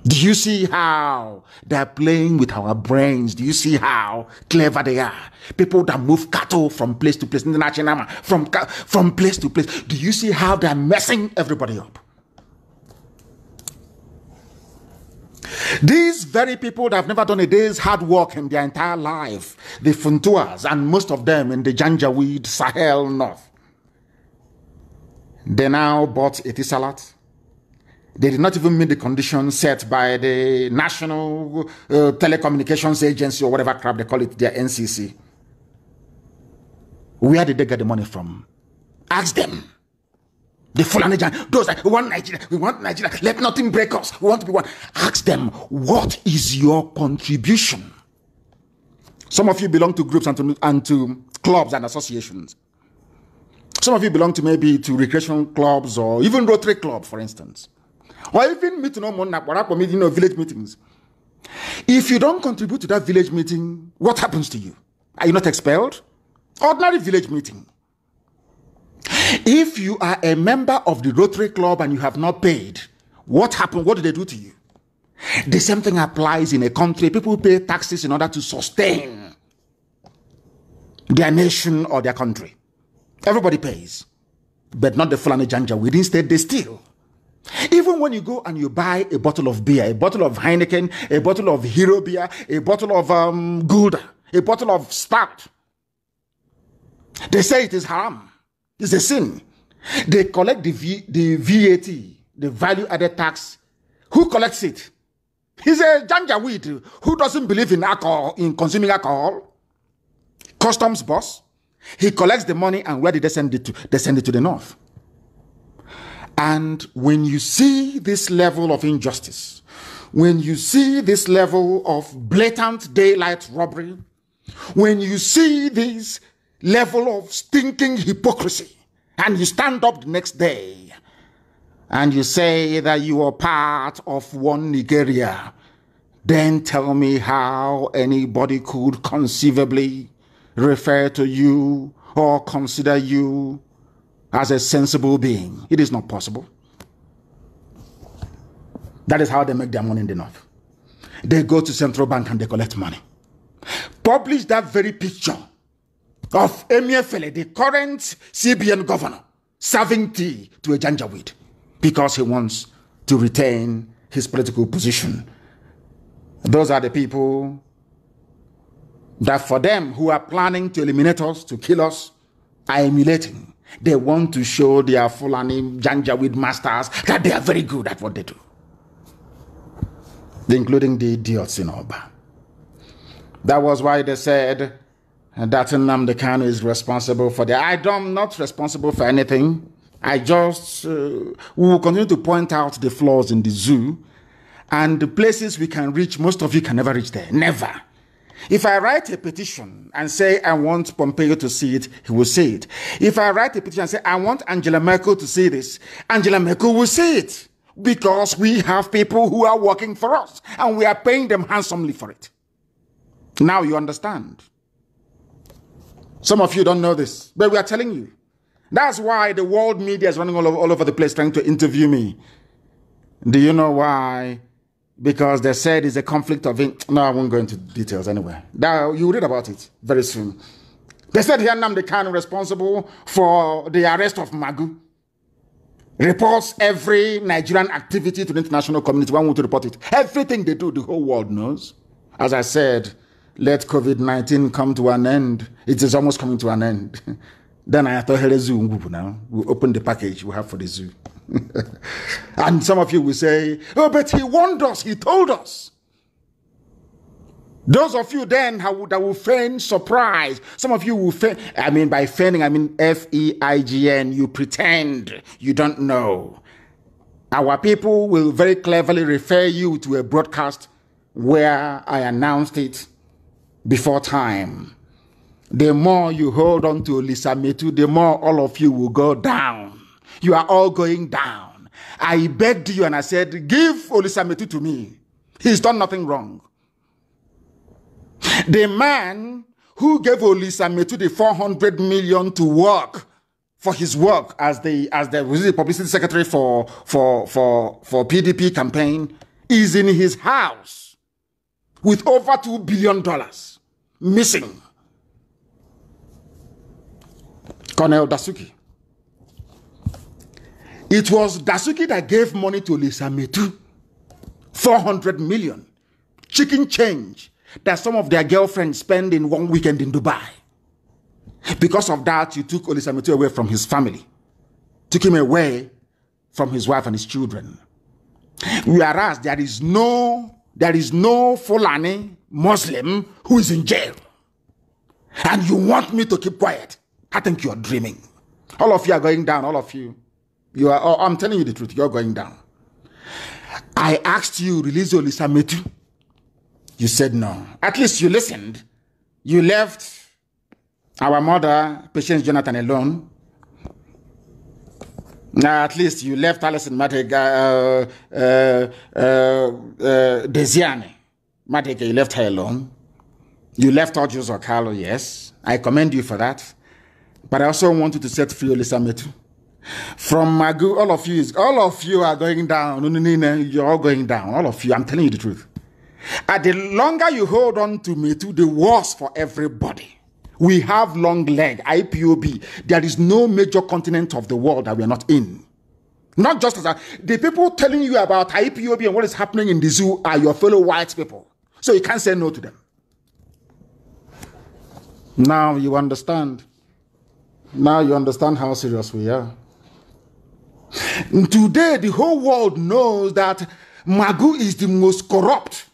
Do you see how they're playing with our brains? Do you see how clever they are? People that move cattle from place to place, international from from place to place. Do you see how they're messing everybody up? These very people that have never done a day's hard work in their entire life, the Funtuas and most of them in the Janjaweed Sahel North, they now bought a tea salad they did not even meet the conditions set by the National uh, Telecommunications Agency or whatever crap they call it, their NCC. Where did they get the money from? Ask them. The full Nigerian, those that want Nigeria, we want Nigeria, let nothing break us, we want to be one. Ask them, what is your contribution? Some of you belong to groups and to, and to clubs and associations. Some of you belong to maybe to recreation clubs or even Rotary Club, for instance or even meeting ụmụnna kpọrọ akpọ meeting or village meetings if you don't contribute to that village meeting what happens to you are you not expelled ordinary village meeting if you are a member of the rotary club and you have not paid what happened what did they do to you the same thing applies in a country people pay taxes in order to sustain their nation or their country everybody pays but not the fulani janja we instead they steal even when you go and you buy a bottle of beer, a bottle of Heineken, a bottle of Hero beer, a bottle of um, Gouda, a bottle of Stout, they say it is haram. It's a sin. They collect the, v, the VAT, the value added tax. Who collects it? He's a janjaweed who doesn't believe in alcohol, in consuming alcohol. Customs boss. He collects the money and where did they send it to? They send it to the north. And when you see this level of injustice, when you see this level of blatant daylight robbery, when you see this level of stinking hypocrisy, and you stand up the next day and you say that you are part of one Nigeria, then tell me how anybody could conceivably refer to you or consider you as a sensible being. It is not possible. That is how they make their money in the north. They go to central bank and they collect money. Publish that very picture of Emir Fele, the current CBN governor, serving tea to a janjaweed because he wants to retain his political position. Those are the people that for them who are planning to eliminate us, to kill us, are emulating they want to show their Fulani Janjaweed masters that they are very good at what they do, including the idiots in Oba. That was why they said that Nnamdi Kanu is responsible for the. I am not responsible for anything. I just uh, will continue to point out the flaws in the zoo and the places we can reach. Most of you can never reach there. Never. If I write a petition and say I want Pompeo to see it, he will see it. If I write a petition and say I want Angela Merkel to see this, Angela Merkel will see it because we have people who are working for us and we are paying them handsomely for it. Now you understand. Some of you don't know this, but we are telling you. That's why the world media is running all over, all over the place trying to interview me. Do you know why because they said it's a conflict of. In- no, I won't go into details anyway. Now you read about it very soon. They said Hianam the Khan responsible for the arrest of Magu. Reports every Nigerian activity to the international community. One want to report it. Everything they do, the whole world knows. As I said, let COVID 19 come to an end. It is almost coming to an end. (laughs) then I thought, hey, zoo, now. we open the package we have for the zoo. (laughs) and some of you will say, Oh, but he warned us, he told us. Those of you then that will feign surprise, some of you will feign, I mean, by feigning, I mean F E I G N, you pretend you don't know. Our people will very cleverly refer you to a broadcast where I announced it before time. The more you hold on to Lisa Metu, the more all of you will go down. You are all going down. I begged you and I said, Give Olisametu to me. He's done nothing wrong. The man who gave Olisametu the 400 million to work for his work as the as the publicity secretary for for for for PDP campaign is in his house with over 2 billion dollars missing. Colonel Dasuki it was Dasuki that gave money to Lisa Metu. 400 million. Chicken change that some of their girlfriends spend in one weekend in Dubai. Because of that, you took Lisa Metu away from his family. Took him away from his wife and his children. Whereas there is no, there is no Fulani Muslim who is in jail. And you want me to keep quiet. I think you're dreaming. All of you are going down, all of you. You are, oh, I'm telling you the truth, you're going down. I asked you, release Olisa Lisametu. You said no. At least you listened. You left our mother, Patience Jonathan, alone. Now, at least you left Alison Matega, uh, uh, uh, uh Desiane. Matega, you left her alone. You left Ojo Carlo, yes. I commend you for that. But I also want you to set free Olisa Olisametu. From Magu, all of you is all of you are going down. You're all going down. All of you. I'm telling you the truth. And the longer you hold on to me to the worse for everybody. We have long leg, IPOB. There is no major continent of the world that we are not in. Not just as a, the people telling you about IPOB and what is happening in the zoo are your fellow white people. So you can't say no to them. Now you understand. Now you understand how serious we are. Today, the whole world knows that Magu is the most corrupt.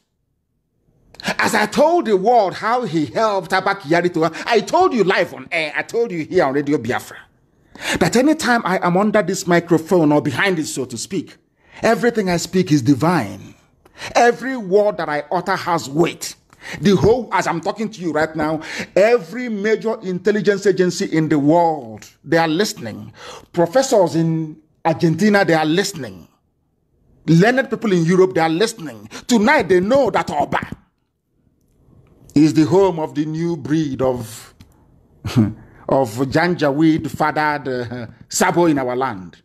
As I told the world how he helped Abakiyari to, I told you live on air, I told you here on Radio Biafra, that anytime I am under this microphone or behind it, so to speak, everything I speak is divine. Every word that I utter has weight. The whole, as I'm talking to you right now, every major intelligence agency in the world, they are listening. Professors in Argentina, they are listening. Learned people in Europe, they are listening. Tonight, they know that Oba is the home of the new breed of, (laughs) of Janjaweed fathered uh, Sabo in our land.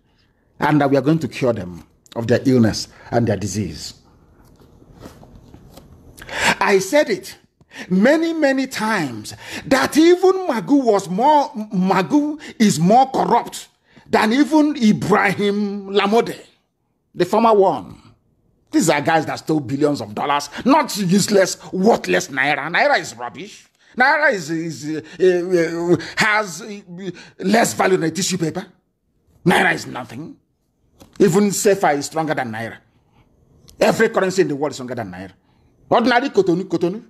And that we are going to cure them of their illness and their disease. I said it many many times that even magu was more magu is more corrupt than even Ibrahim Lamode, the former one. These are guys that stole billions of dollars, not useless, worthless Naira. Naira is rubbish. Naira is, is uh, uh has uh, less value than a tissue paper. Naira is nothing. Even Sefa is stronger than Naira. Every currency in the world is stronger than Naira. Ordinary Kotonu, Kotonu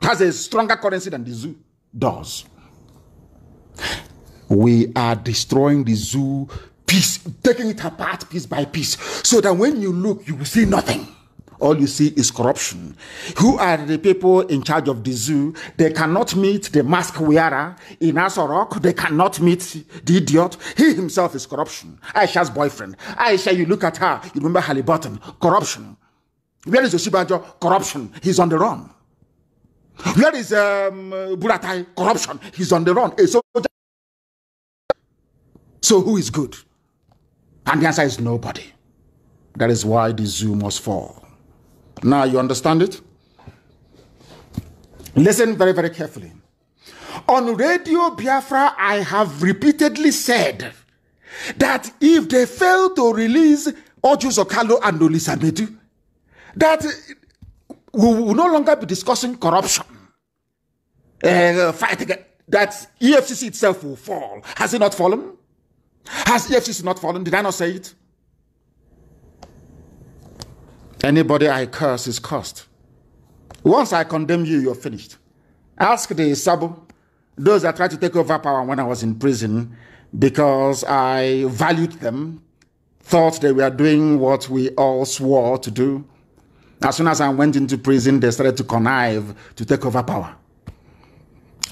has a stronger currency than the zoo does. we are destroying the zoo piece, taking it apart piece by piece, so that when you look, you will see nothing. All you see is corruption. Who are the people in charge of the zoo? They cannot meet the mask wearer in Asorok. They cannot meet the idiot. He himself is corruption. Aisha's boyfriend. Aisha, you look at her, you remember Halliburton. Corruption. Where is Oshibajo? Corruption. He's on the run. Where is um, Buratai? Corruption. He's on the run. A soldier so who is good? And the answer is nobody. That is why the zoo must fall. Now you understand it? Listen very, very carefully. On Radio Biafra, I have repeatedly said that if they fail to release Ojus Okalo and Medu, that we will no longer be discussing corruption. Uh, fight that EFCC itself will fall. Has it not fallen? Has EFCC not fallen? Did I not say it? Anybody I curse is cursed. Once I condemn you, you're finished. Ask the Sabo, those that tried to take over power when I was in prison because I valued them, thought they were doing what we all swore to do. As soon as I went into prison, they started to connive to take over power.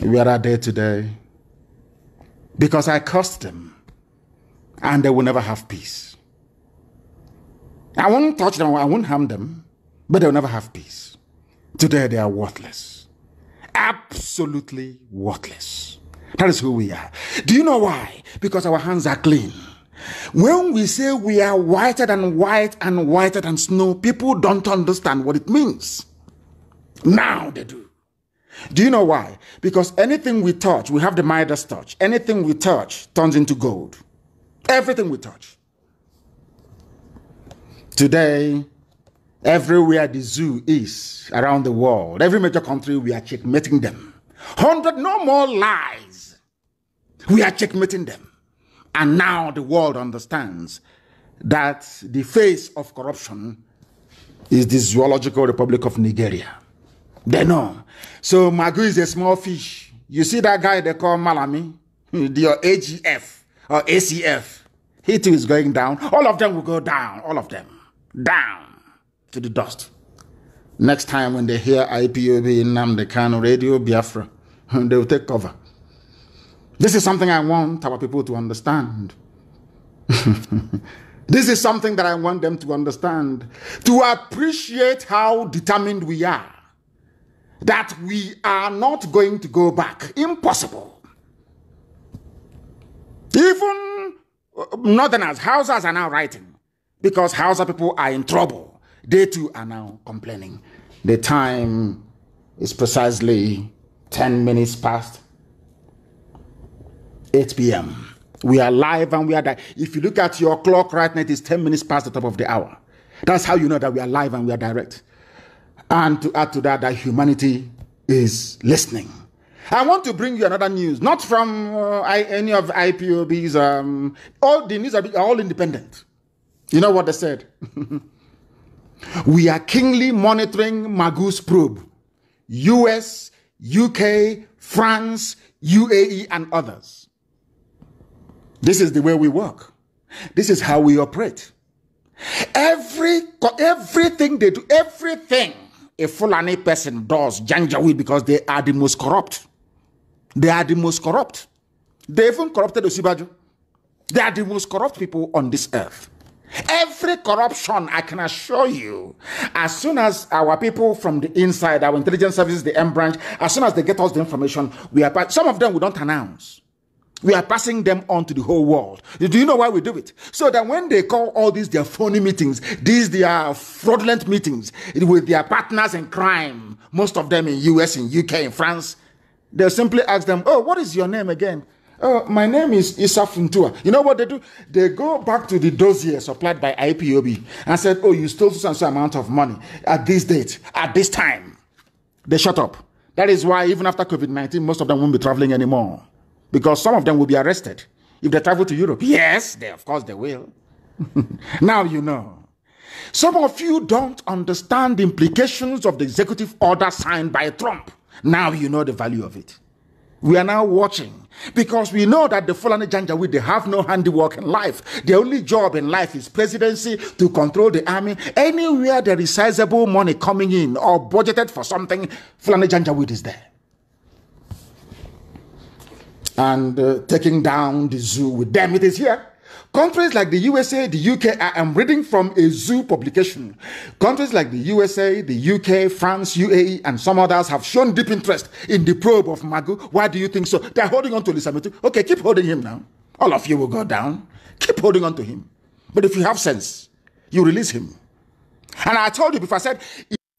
We are there today because I cursed them and they will never have peace. I won't touch them, I won't harm them, but they'll never have peace. Today they are worthless. Absolutely worthless. That is who we are. Do you know why? Because our hands are clean. When we say we are whiter than white and whiter than snow, people don't understand what it means. Now they do. Do you know why? Because anything we touch, we have the Midas touch. Anything we touch turns into gold. Everything we touch. Today, everywhere the zoo is around the world, every major country, we are checkmating them. 100 no more lies. We are checkmating them. And now the world understands that the face of corruption is the Zoological Republic of Nigeria. They know. So Magu is a small fish. You see that guy they call Malami, the (laughs) AGF or ACF, he too is going down. All of them will go down. All of them. Down to the dust. Next time when they hear IPOB in Namdekan Radio Biafra, (laughs) they will take cover. This is something I want our people to understand. (laughs) this is something that I want them to understand. To appreciate how determined we are. That we are not going to go back. Impossible. Even uh, northerners, Hausas are now writing because Hausa people are in trouble. They too are now complaining. The time is precisely 10 minutes past 8 p.m. We are live and we are direct. If you look at your clock right now, it is 10 minutes past the top of the hour. That's how you know that we are live and we are direct. And to add to that, that humanity is listening. I want to bring you another news, not from uh, I, any of IPOB's. Um, all the news are, all independent. You know what they said? (laughs) we are keenly monitoring Magus probe, US, UK, France, UAE, and others. This is the way we work. This is how we operate. Every everything they do, everything a Fulani person does, Janjaweed, because they are the most corrupt. They are the most corrupt. They even corrupted Osibajo. They are the most corrupt people on this earth. Every corruption, I can assure you, as soon as our people from the inside, our intelligence services, the M branch, as soon as they get us the information, we are some of them we don't announce. We are passing them on to the whole world. Do you know why we do it? So that when they call all these their phony meetings, these their fraudulent meetings with their partners in crime, most of them in US, in UK, in France, They'll simply ask them, Oh, what is your name again? Oh, my name is Isafuntua. You know what they do? They go back to the dossier supplied by IPOB and said, Oh, you stole some and amount of money at this date, at this time. They shut up. That is why, even after COVID 19, most of them won't be traveling anymore because some of them will be arrested if they travel to Europe. Yes, they, of course they will. (laughs) now you know. Some of you don't understand the implications of the executive order signed by Trump. Now you know the value of it. We are now watching because we know that the Fulani Janjaweed, they have no handiwork in life. The only job in life is presidency to control the army. Anywhere there is sizable money coming in or budgeted for something, Fulani Janjaweed is there. And uh, taking down the zoo with them, it is here. Countries like the USA, the UK, I am reading from a zoo publication. Countries like the USA, the UK, France, UAE, and some others have shown deep interest in the probe of Magu. Why do you think so? They're holding on to Lisametu. Okay, keep holding him now. All of you will go down. Keep holding on to him. But if you have sense, you release him. And I told you before, I said,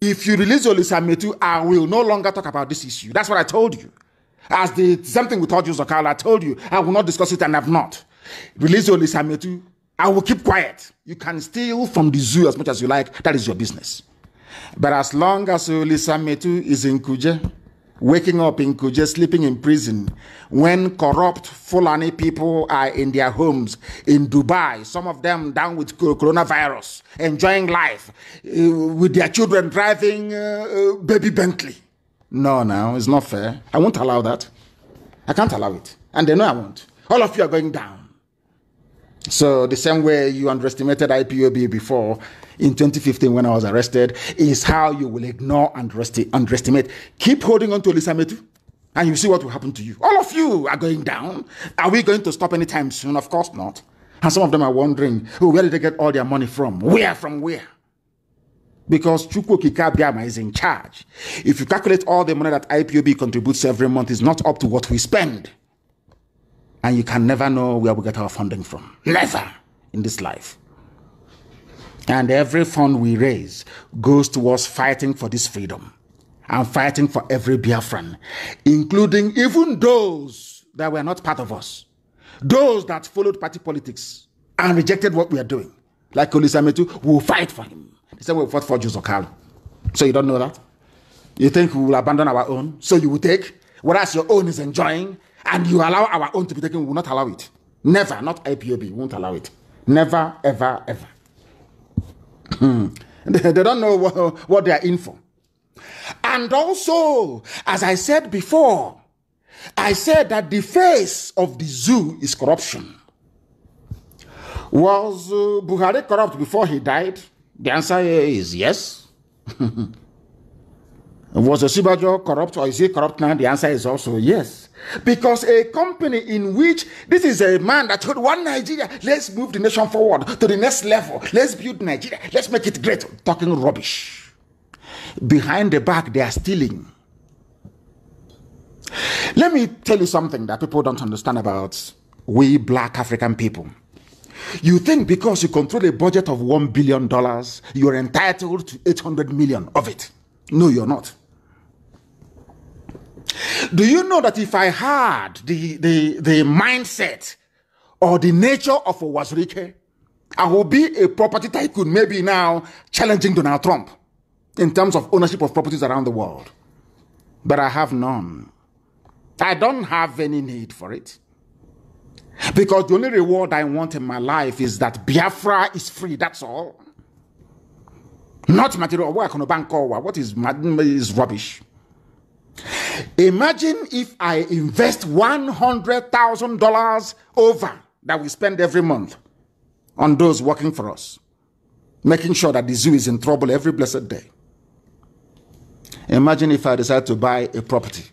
if you release Olisametu, I will no longer talk about this issue. That's what I told you. As the same thing with Audio Zakala, I told you I will not discuss it and I've not. Release your Lisametu. I will keep quiet. You can steal from the zoo as much as you like. That is your business. But as long as Lisametu is in Kuje, waking up in Kuje, sleeping in prison, when corrupt Fulani people are in their homes in Dubai, some of them down with coronavirus, enjoying life, eh, with their children driving uh, baby Bentley. No, no, it's not fair. I won't allow that. I can't allow it. And they know I won't. All of you are going down. So the same way you underestimated IPOB before in 2015 when I was arrested is how you will ignore and underestimate. Keep holding on to Elisa Metu and you see what will happen to you. All of you are going down. Are we going to stop anytime soon? Of course not. And some of them are wondering, oh, where did they get all their money from? Where from where? Because Chukwu Kikabiama is in charge. If you calculate all the money that IPOB contributes every month, it's not up to what we spend and you can never know where we get our funding from. Never in this life. And every fund we raise goes towards fighting for this freedom and fighting for every Biafran, including even those that were not part of us, those that followed party politics and rejected what we are doing. Like Olisametu, we will fight for him. The same way we fought for Juzokalo. So you don't know that? You think we will abandon our own, so you will take, whereas your own is enjoying and you allow our own to be taken, we will not allow it. Never, not IPOB, we won't allow it. Never, ever, ever. Hmm. (laughs) they, don't know what, what they are in for. And also, as I said before, I said that the face of the zoo is corruption. Was uh, Buhari corrupt before he died? The answer is yes. (laughs) Was Oshibajo corrupt or is he corrupt now? The answer is also yes. Because a company in which this is a man that told one Nigeria, let's move the nation forward to the next level, let's build Nigeria, let's make it great, talking rubbish. Behind the back, they are stealing. Let me tell you something that people don't understand about we black African people. You think because you control a budget of $1 billion, you're entitled to 800 million of it. No, you're not. Do you know that if I had the, the, the mindset or the nature of a Wazirike, I would be a property tycoon, maybe now challenging Donald Trump in terms of ownership of properties around the world. But I have none. I don't have any need for it. Because the only reward I want in my life is that Biafra is free, that's all. Not material. What is, is rubbish? Imagine if I invest $100,000 over that we spend every month on those working for us, making sure that the zoo is in trouble every blessed day. Imagine if I decide to buy a property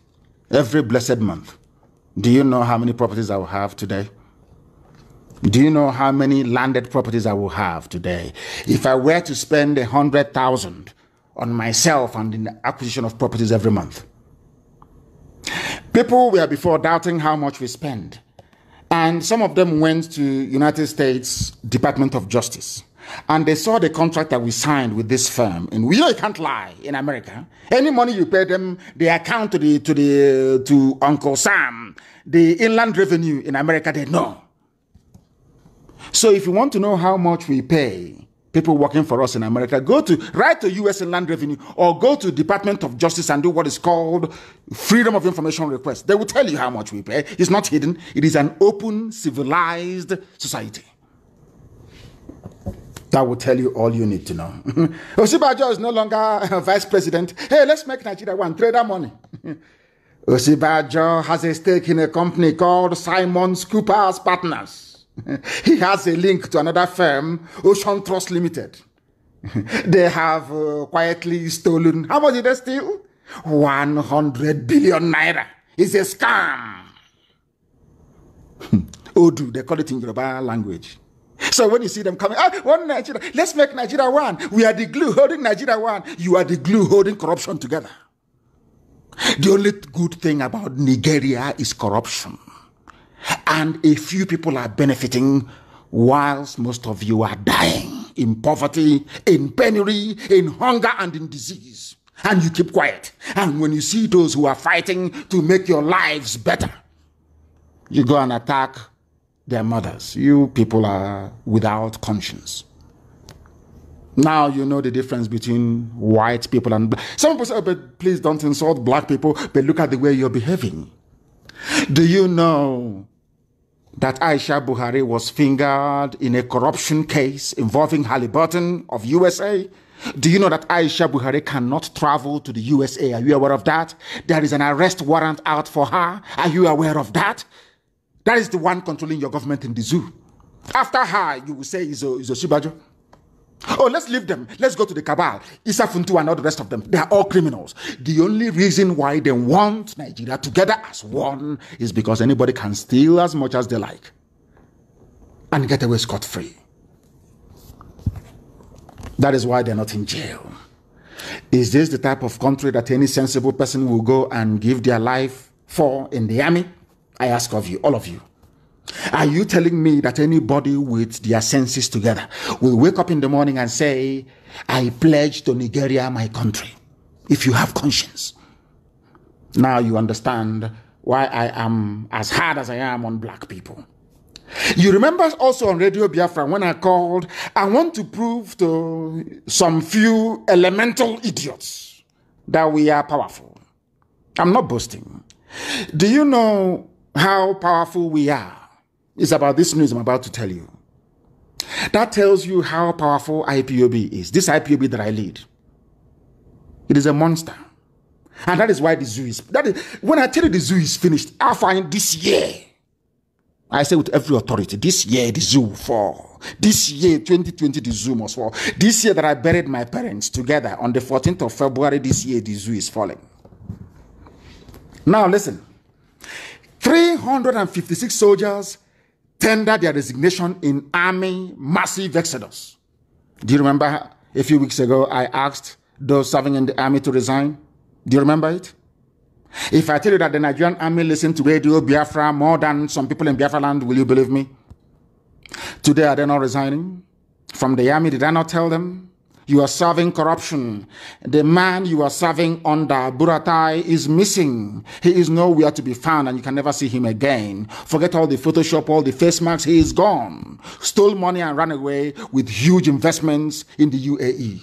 every blessed month. Do you know how many properties I will have today? Do you know how many landed properties I will have today? If I were to spend a hundred thousand on myself and in the acquisition of properties every month, People were before doubting how much we spend, and some of them went to United States Department of Justice and they saw the contract that we signed with this firm. And we know you can't lie in America. Any money you pay them, they account to the to the to Uncle Sam. The inland revenue in America, they know. So if you want to know how much we pay people working for us in America. Go to write to U.S. Land Revenue or go to Department of Justice and do what is called Freedom of Information request. They will tell you how much we pay. It's not hidden. It is an open, civilized society. That will tell you all you need to know. (laughs) Osibajo is no longer vice president. Hey, let's make Nigeria one. Trade our money. (laughs) Osibajo has a stake in a company called Simon Cooper's Partners. (laughs) he has a link to another firm, Ocean Trust Limited. (laughs) they have uh, quietly stolen. How much did they steal? 100 billion naira. It's a scam. (laughs) Odu, they call it in Yoruba language. So when you see them coming, ah, one Nigeria, let's make Nigeria one. We are the glue holding Nigeria one. You are the glue holding corruption together. The only good thing about Nigeria is corruption and a few people are benefiting whilst most of you are dying in poverty, in penury, in hunger, and in disease. And you keep quiet. And when you see those who are fighting to make your lives better, you go and attack their mothers. You people are without conscience. Now you know the difference between white people and black. Some people say, oh, but please don't insult black people, but look at the way you're behaving. Do you know that Aisha Buhari was fingered in a corruption case involving Halliburton of USA? Do you know that Aisha Buhari cannot travel to the USA? Are you aware of that? There is an arrest warrant out for her. Are you aware of that? That is the one controlling your government in the zoo. After her, you will say, Izo, Izo Shibajo. Oh, let's leave them. Let's go to the cabal. Isa Funtu and all the rest of them. They are all criminals. The only reason why they want Nigeria together as one is because anybody can steal as much as they like and get away scot free. That is why they're not in jail. Is this the type of country that any sensible person will go and give their life for in the army? I ask of you, all of you. Are you telling me that anybody with their senses together will wake up in the morning and say, I pledge to Nigeria my country? If you have conscience. Now you understand why I am as hard as I am on black people. You remember also on Radio Biafra when I called, I want to prove to some few elemental idiots that we are powerful. I'm not boasting. Do you know how powerful we are? is about this news I'm about to tell you. That tells you how powerful IPOB is. This IPOB that I lead, it is a monster. And that is why the zoo is. That is, when I tell you the zoo is finished, I find this year. I say with every authority, this year the zoo will fall. This year, 2020, the zoo must fall. This year that I buried my parents together on the 14th of February, this year the zoo is falling. Now listen 356 soldiers Tender their resignation in army massive exodus. Do you remember a few weeks ago I asked those serving in the army to resign? Do you remember it? If I tell you that the Nigerian army listened to Radio Biafra more than some people in Biafra land, will you believe me? Today, are they not resigning? From the army, did I not tell them? you are serving corruption. The man you are serving under Buratai is missing. He is nowhere to be found and you can never see him again. Forget all the Photoshop, all the face masks. He is gone. Stole money and ran away with huge investments in the UAE.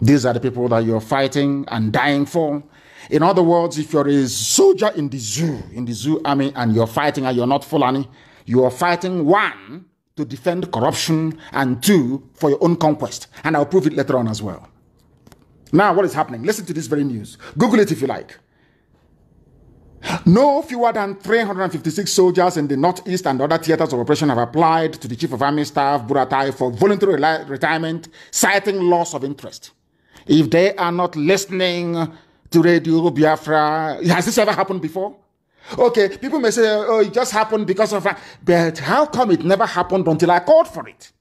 These are the people that you're fighting and dying for. In other words, if you're a soldier in the zoo, in the zoo army, and you're fighting and you're not Fulani, you are fighting one to defend corruption, and two, for your own conquest. And I'll prove it later on as well. Now, what is happening? Listen to this very news. Google it if you like. No fewer than 356 soldiers in the Northeast and other theaters of operation have applied to the Chief of Army Staff, Buratai, for voluntary retirement, citing loss of interest. If they are not listening to Radio Biafra, has this ever happened before? Okay, people may say, oh, it just happened because of that. But how come it never happened until I called for it?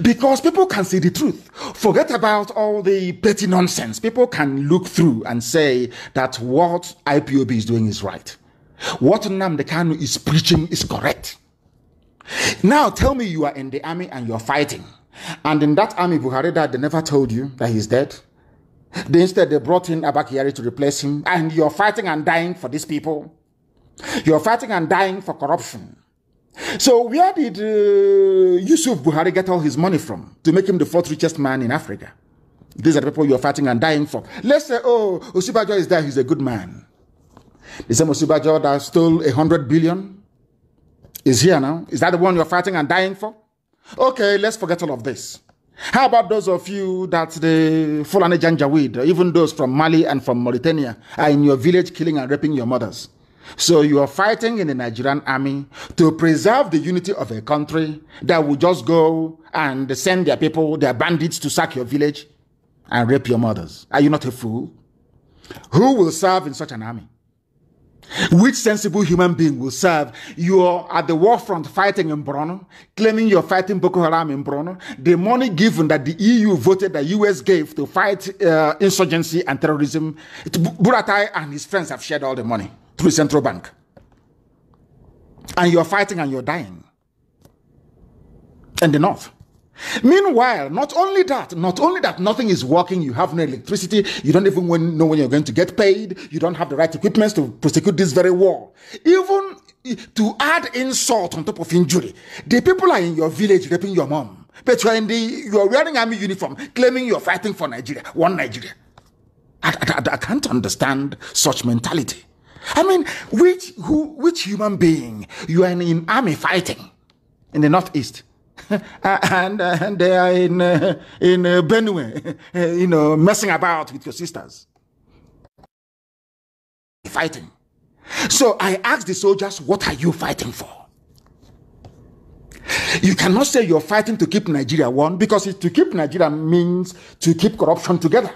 Because people can see the truth. Forget about all the petty nonsense. People can look through and say that what IPOB is doing is right. What Namdekanu is preaching is correct. Now tell me you are in the army and you're fighting. And in that army, Buhari died, they never told you that he's dead. They instead they brought in Abakari to replace him, and you're fighting and dying for these people. You're fighting and dying for corruption. So where did uh, Yusuf Buhari get all his money from to make him the fourth richest man in Africa? These are the people you're fighting and dying for. Let's say, oh, Osubajo is there, he's a good man. The same Osubajo that stole a hundred billion is here now. Is that the one you're fighting and dying for? Okay, let's forget all of this. How about those of you that the Fulani Janjaweed, even those from Mali and from Mauritania, are in your village killing and raping your mothers? So you are fighting in the Nigerian army to preserve the unity of a country that will just go and send their people, their bandits to sack your village and rape your mothers. Are you not a fool? Who will serve in such an army? Which sensible human being will serve? You are at the war front fighting in Bruno, claiming you're fighting Boko Haram in Bruno. The money given that the EU voted, the US gave to fight uh, insurgency and terrorism, Buratai and his friends have shared all the money through central bank. And you're fighting and you're dying in the north. Meanwhile, not only that, not only that, nothing is working. You have no electricity. You don't even know when you're going to get paid. You don't have the right equipment to prosecute this very war. Even to add insult on top of injury, the people are in your village raping your mom. But you're in the you're wearing army uniform, claiming you're fighting for Nigeria, one Nigeria. I, I, I can't understand such mentality. I mean, which who which human being you are in, in army fighting in the northeast? (laughs) and, uh, and they are in, uh, in uh, Benue, uh, you know, messing about with your sisters. Fighting. So I asked the soldiers, what are you fighting for? You cannot say you're fighting to keep Nigeria one because to keep Nigeria means to keep corruption together.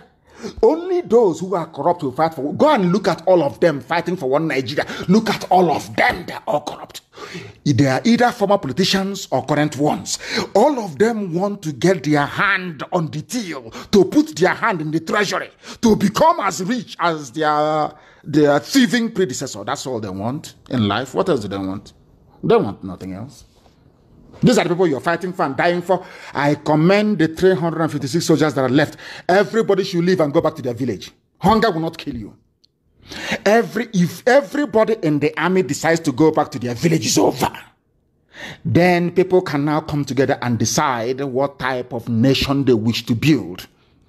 Only those who are corrupt will fight for. Go and look at all of them fighting for one Nigeria. Look at all of them. They're all corrupt. They are either former politicians or current ones. All of them want to get their hand on the till, to put their hand in the treasury, to become as rich as their their thieving predecessor. That's all they want in life. What else do they want? They want nothing else. These are the people you're fighting for and dying for. I commend the 356 soldiers that are left. Everybody should leave and go back to their village. Hunger will not kill you. Every if everybody in the army decides to go back to their village over. Then people can now come together and decide what type of nation they wish to build.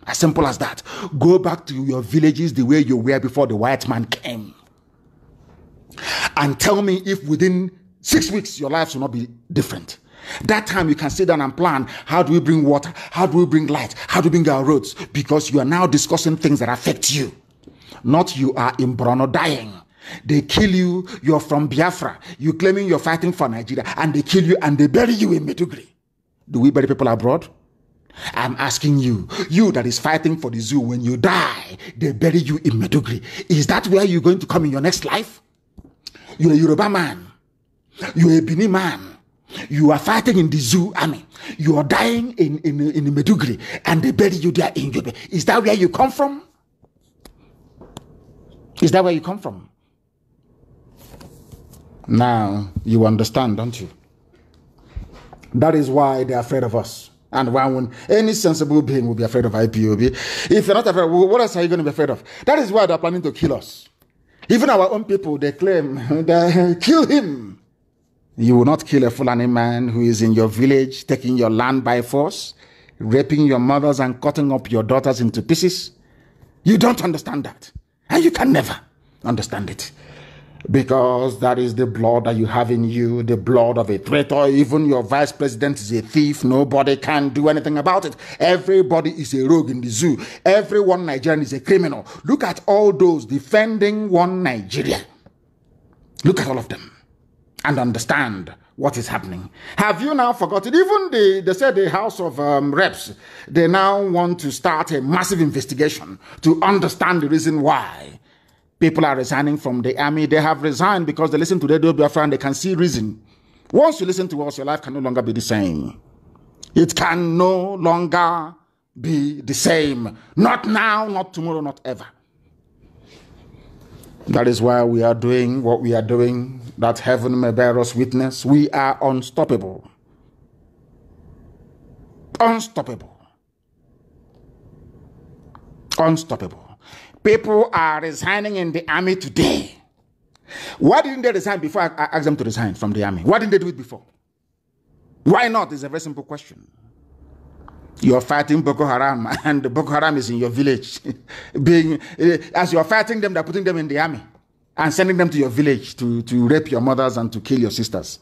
As simple as that. Go back to your villages the way you were before the white man came. And tell me if within six weeks your lives will not be different. That time you can sit down and plan how do we bring water? How do we bring light? How do we bring our roads? Because you are now discussing things that affect you. Not you are in Brono dying. They kill you, you're from Biafra. You claiming you're fighting for Nigeria, and they kill you and they bury you in Medugri. Do we bury people abroad? I'm asking you, you that is fighting for the zoo, when you die, they bury you in Medugri. Is that where you're going to come in your next life? You're a Yoruba man. You're a Bini man you are fighting in the zoo army. You are dying in, in, in Medugri and they bury you there in Yobe. Is that where you come from? Is that where you come from? Now you understand, don't you? That is why they're afraid of us. And why would any sensible being will be afraid of IPOB? If you're not afraid, what else are you going to be afraid of? That is why they're planning to kill us. Even our own people, they claim (laughs) they kill him. You will not kill a Fulani man who is in your village, taking your land by force, raping your mothers and cutting up your daughters into pieces. You don't understand that. And you can never understand it. Because that is the blood that you have in you, the blood of a traitor. Even your vice president is a thief. Nobody can do anything about it. Everybody is a rogue in the zoo. Everyone Nigerian is a criminal. Look at all those defending one Nigeria. Look at all of them and understand what is happening. Have you now forgotten? Even the, they said the House of um, Reps, they now want to start a massive investigation to understand the reason why people are resigning from the army. They have resigned because they listen to their Biafra and they can see reason. Once you listen to us, your life can no longer be the same. It can no longer be the same. Not now, not tomorrow, not ever. That is why we are doing what we are doing, that heaven may bear us witness. We are unstoppable. Unstoppable. Unstoppable. People are resigning in the army today. Why didn't they resign before I asked them to resign from the army? Why didn't they do it before? Why not? It's a very simple question. You're fighting Boko Haram, (laughs) and Boko Haram is in your village. (laughs) Being uh, as you're fighting them, they're putting them in the army and sending them to your village to to rape your mothers and to kill your sisters.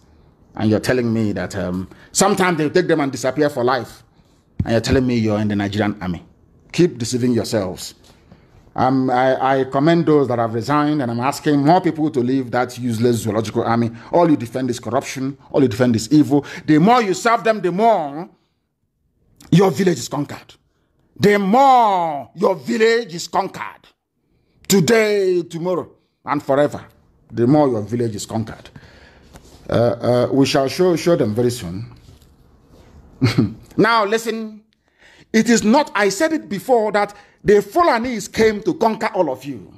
And you're telling me that um, sometimes they take them and disappear for life. And you're telling me you're in the Nigerian army. Keep deceiving yourselves. Um, I, I, commend those that have resigned, and I'm asking more people to leave that useless zoological army. All you defend is corruption, all you defend is evil. The more you serve them, the more your village is conquered. The more your village is conquered, today, tomorrow, and forever, the more your village is conquered. Uh, uh, we shall show, show them very soon. (laughs) now, listen. It is not, I said it before, that the Fulanese came to conquer all of you.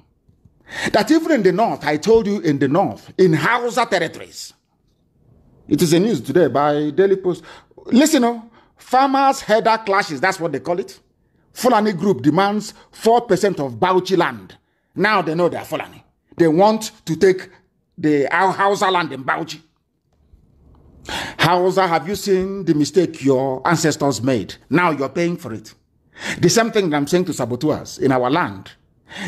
That even in the north, I told you in the north, in Hausa territories. It is a news today by Daily Post. Listen, oh, Farmers' header clashes, that's what they call it. Fulani group demands 4% of Bauchi land. Now they know they are Fulani. They want to take the Hausa land in Bauchi. Hausa, have you seen the mistake your ancestors made? Now you're paying for it. The same thing I'm saying to saboteurs in our land.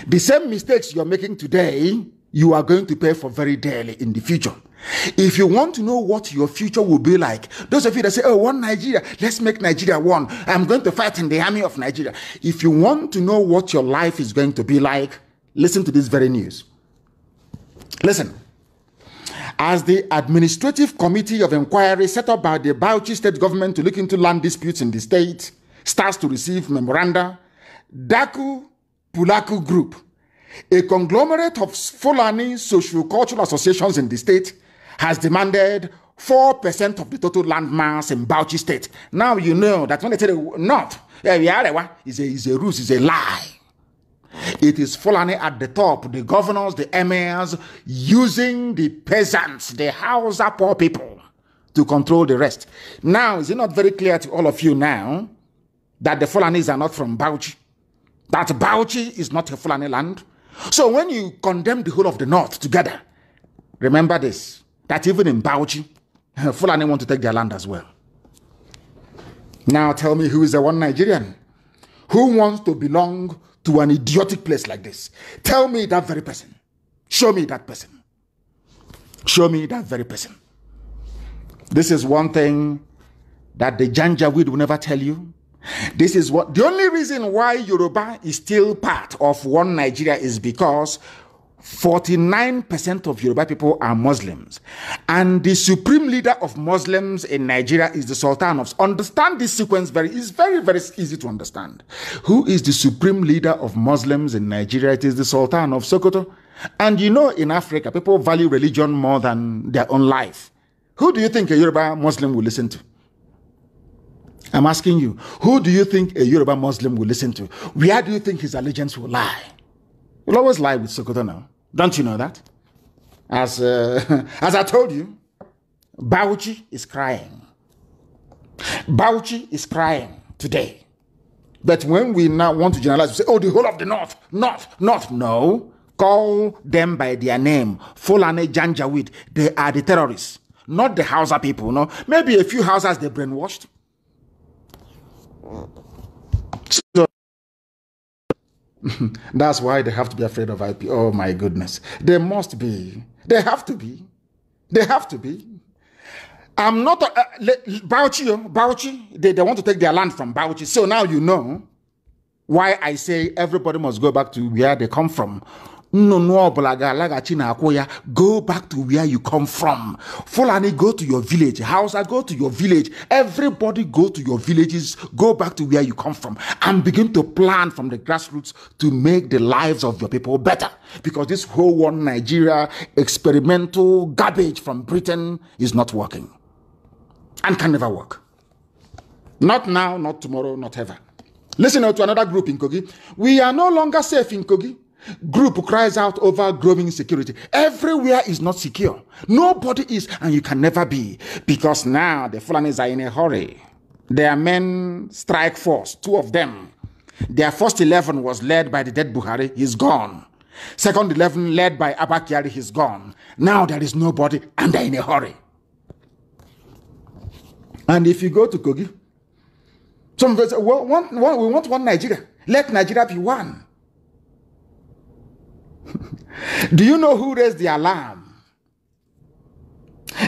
The same mistakes you're making today, you are going to pay for very dearly in the future. If you want to know what your future will be like, those of you that say, Oh, one Nigeria, let's make Nigeria one. I'm going to fight in the army of Nigeria. If you want to know what your life is going to be like, listen to this very news. Listen. As the Administrative Committee of Inquiry set up by the Bauchi state government to look into land disputes in the state starts to receive memoranda, Daku Pulaku Group, a conglomerate of Fulani social cultural associations in the state, has demanded 4% of the total land mass in Bauchi state. Now you know that when they say the north, eh, is a, is a ruse, is a lie. It is Fulani at the top, the governors, the emirs, using the peasants, the Hausa poor people, to control the rest. Now, is it not very clear to all of you now that the Fulanis are not from Bauchi? That Bauchi is not a Fulani land? So when you condemn the whole of the north together, remember this that even in Bauchi, Fulani want to take their land as well. Now tell me who is the one Nigerian who wants to belong to an idiotic place like this? Tell me that very person. Show me that person. Show me that very person. This is one thing that the Janjaweed will never tell you. This is what the only reason why Yoruba is still part of one Nigeria is because 49% of Yoruba people are Muslims. And the supreme leader of Muslims in Nigeria is the Sultan of. Understand this sequence very, it's very, very easy to understand. Who is the supreme leader of Muslims in Nigeria? It is the Sultan of Sokoto. And you know, in Africa, people value religion more than their own life. Who do you think a Yoruba Muslim will listen to? I'm asking you, who do you think a Yoruba Muslim will listen to? Where do you think his allegiance will lie? Will always lie with Sokoto now. Don't you know that? As, uh, (laughs) as I told you, Bauchi is crying. Bauchi is crying today. But when we now want to generalize, we say, oh, the whole of the North, North, North. No. Call them by their name. Fulani Janjaweed. They are the terrorists, not the Hausa people. No. Maybe a few Hausas they brainwashed. So (laughs) That's why they have to be afraid of IP. Oh my goodness. They must be. They have to be. They have to be. I'm not a, uh, Bauchi, oh, Bauchi. They, they want to take their land from Bauchi. So now you know why I say everybody must go back to where they come from. nnụnụ ọbụla ga-alaghachi n'akwụ ya go back to where you come from fulani go to your village hausa go to your village everybody go to your villages go back to where you come from and begin to plan from the grassroots to make the lives of your people better because this whole one nigeria experimental garbage from britain is not working and can never work not now not tomorrow not ever listen to another group in kogi we are no longer safe in kogi Group cries out over growing security. Everywhere is not secure. Nobody is, and you can never be, because now the Fulanis are in a hurry. Their men strike force, two of them. Their first 11 was led by the dead Buhari, he's gone. Second 11 led by Abakiari, he's gone. Now there is nobody, and they're in a hurry. And if you go to Kogi, some people say, well, one, one, we want one Nigeria. Let Nigeria be one. Do you know who raised the alarm?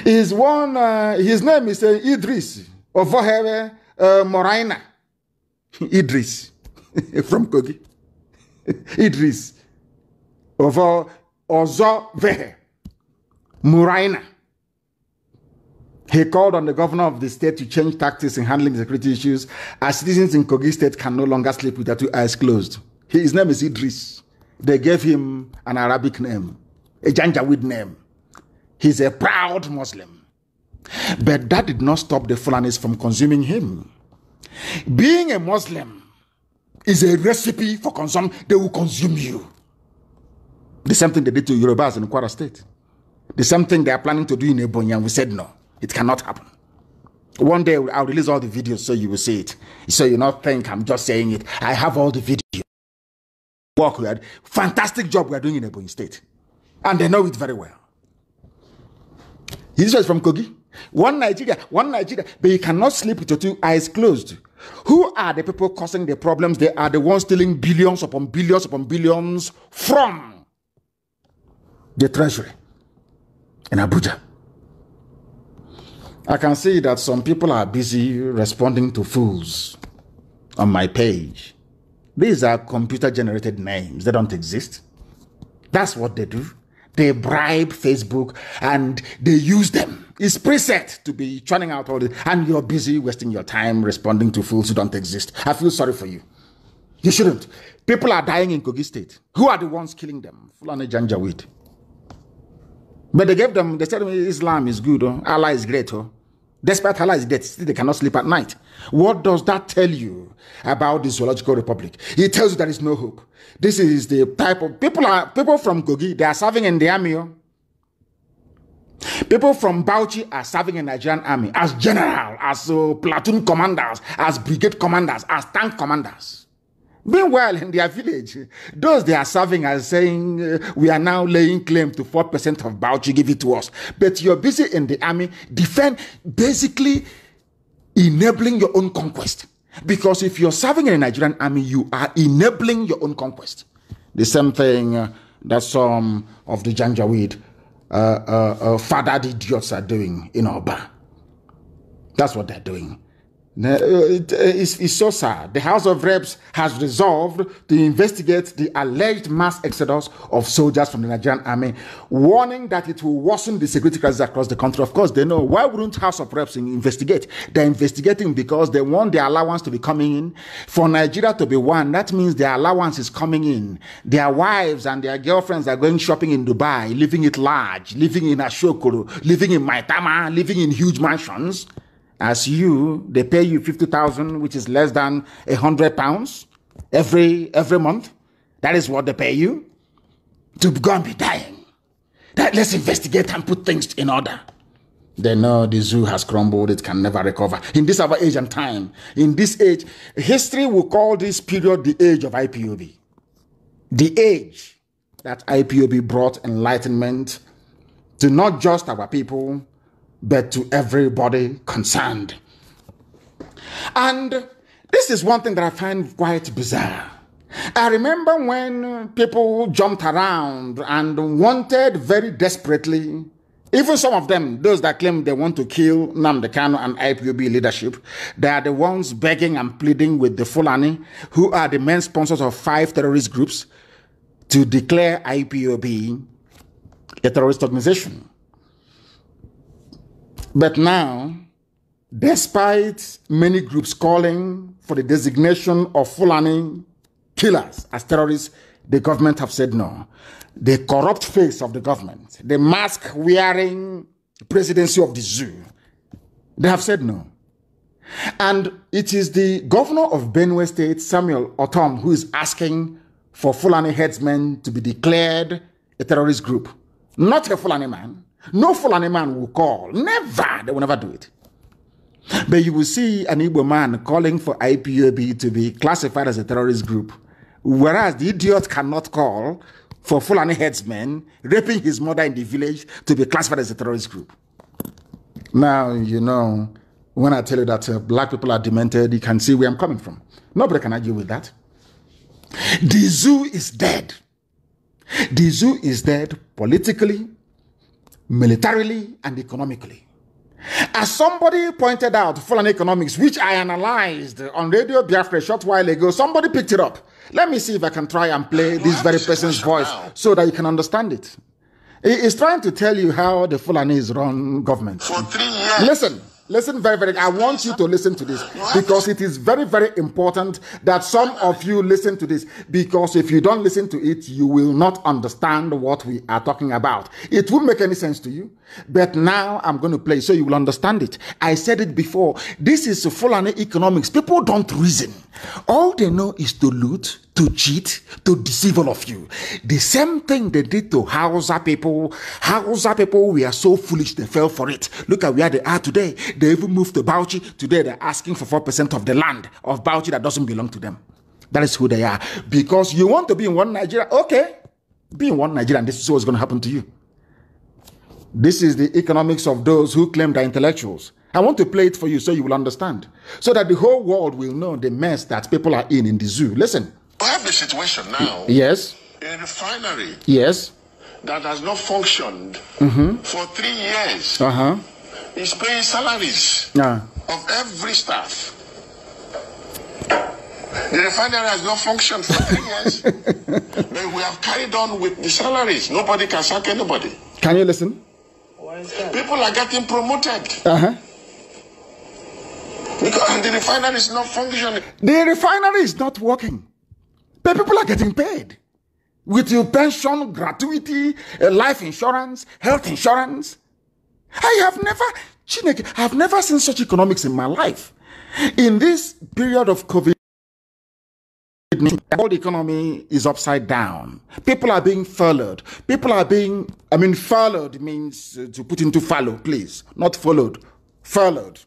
Is one, uh, his name is uh, Idris of Voheve uh, Moraina. (laughs) Idris (laughs) from Kogi. (laughs) Idris of uh, Ozo Vehe Moraina. He called on the governor of the state to change tactics in handling security issues as citizens in Kogi state can no longer sleep with their two eyes closed. His name is Idris. They gave him an Arabic name, a Janjaweed name. He's a proud Muslim. But that did not stop the Fulanis from consuming him. Being a Muslim is a recipe for consumption. They will consume you. The same thing they did to Yorubas in Kwara State. The same thing they are planning to do in Ebonyi, and we said no, it cannot happen. One day I'll release all the videos so you will see it. So you not think I'm just saying it. I have all the videos work we are, fantastic job we are doing in Ebony State. And they know it very well. This was from Kogi. One Nigeria, one Nigeria, but you cannot sleep with your two eyes closed. Who are the people causing the problems? They are the ones stealing billions upon billions upon billions from the treasury in Abuja. I can see that some people are busy responding to fools on my page. These are computer generated names. They don't exist. That's what they do. They bribe Facebook and they use them. It's preset to be churning out all this. And you're busy wasting your time responding to fools who don't exist. I feel sorry for you. You shouldn't. People are dying in Kogi State. Who are the ones killing them? Fulani Janjaweed. But they gave them, they said Islam is good, oh? Allah is great. Oh. Despite Allah's death, still they cannot sleep at night. What does that tell you about the zoological republic? It tells you there is no hope. This is the type of people are people from Kogi, they are serving in the army. Oh. People from Bauchi are serving in the Nigerian army as general, as uh, platoon commanders, as brigade commanders, as tank commanders. Meanwhile, in their village, those they are serving are saying, uh, We are now laying claim to 4% of Bauchi, give it to us. But you're busy in the army, defend, basically enabling your own conquest. Because if you're serving in the Nigerian army, you are enabling your own conquest. The same thing uh, that some of the Janjaweed uh, uh, uh, fathered idiots are doing in Oba. That's what they're doing. Uh, uh, it's so sad. The House of Reps has resolved to investigate the alleged mass exodus of soldiers from the Nigerian army, warning that it will worsen the security crisis across the country. Of course, they know. Why wouldn't House of Reps investigate? They're investigating because they want the allowance to be coming in. For Nigeria to be one, that means their allowance is coming in. Their wives and their girlfriends are going shopping in Dubai, living it large, living in Ashokolu, living in Maitama, living in huge mansions. As you, they pay you 50,000, which is less than a hundred pounds every, every month. That is what they pay you to go and be dying. That, let's investigate and put things in order. They know the zoo has crumbled, it can never recover. In this our age and time, in this age, history will call this period the age of IPOB. The age that IPOB brought enlightenment to not just our people, but to everybody concerned. And this is one thing that I find quite bizarre. I remember when people jumped around and wanted very desperately, even some of them, those that claim they want to kill Namdekano and IPUB leadership, they are the ones begging and pleading with the Fulani, who are the main sponsors of five terrorist groups, to declare IPUB a terrorist organization. But now, despite many groups calling for the designation of Fulani killers as terrorists, the government have said no. The corrupt face of the government, the mask wearing presidency of the zoo, they have said no. And it is the governor of Benue State, Samuel Otom, who is asking for Fulani headsmen to be declared a terrorist group, not a Fulani man, no Fulani man will call. Never. They will never do it. But you will see an Igbo man calling for IPOB to be classified as a terrorist group, whereas the idiot cannot call for Fulani headsmen raping his mother in the village to be classified as a terrorist group. Now, you know, when I tell you that uh, black people are demented, you can see where I'm coming from. Nobody can argue with that. The zoo is dead. The zoo is dead politically, militarily and economically. As somebody pointed out, Full Economics, which I analyzed on Radio Biafra a short while ago, somebody picked it up. Let me see if I can try and play this very person's voice so that you can understand it. He is trying to tell you how the Fulani is run government. For three years. Listen. Listen very, very. I want you to listen to this because it is very, very important that some of you listen to this because if you don't listen to it, you will not understand what we are talking about. It won't make any sense to you, but now I'm going to play so you will understand it. I said it before. This is Fulani economics. People don't reason. All they know is to loot, to cheat, to deceive all of you. The same thing they did to Hausa people. Hausa people we are so foolish they fell for it. Look at where they are today. They even moved to Bauchi. Today they're asking for 4% of the land of Bauchi that doesn't belong to them. That is who they are. Because you want to be in one Nigeria, okay. Be in one Nigeria and this is what's going to happen to you. This is the economics of those who claim they're intellectuals. I want to play it for you so you will understand. So that the whole world will know the mess that people are in in the zoo. Listen. We have the situation now. Yes. In a refinery. Yes. That has not functioned mm -hmm. for three years. Uh uh-huh. huh. Is paying salaries yeah. of every staff. The refinery has not functioned for three years. (laughs) but we have carried on with the salaries. Nobody can sack anybody. Can you listen? People are getting promoted. Uh huh. Because the refinery is not functioning. The refinery is not working. But people are getting paid. With your pension, gratuity, eh, life insurance, health insurance. I have never, Chineke, I have never seen such economics in my life. In this period of COVID, the whole economy is upside down. People are being followed. People are being, I mean, followed means eh, to put into follow, please. Not followed, followed.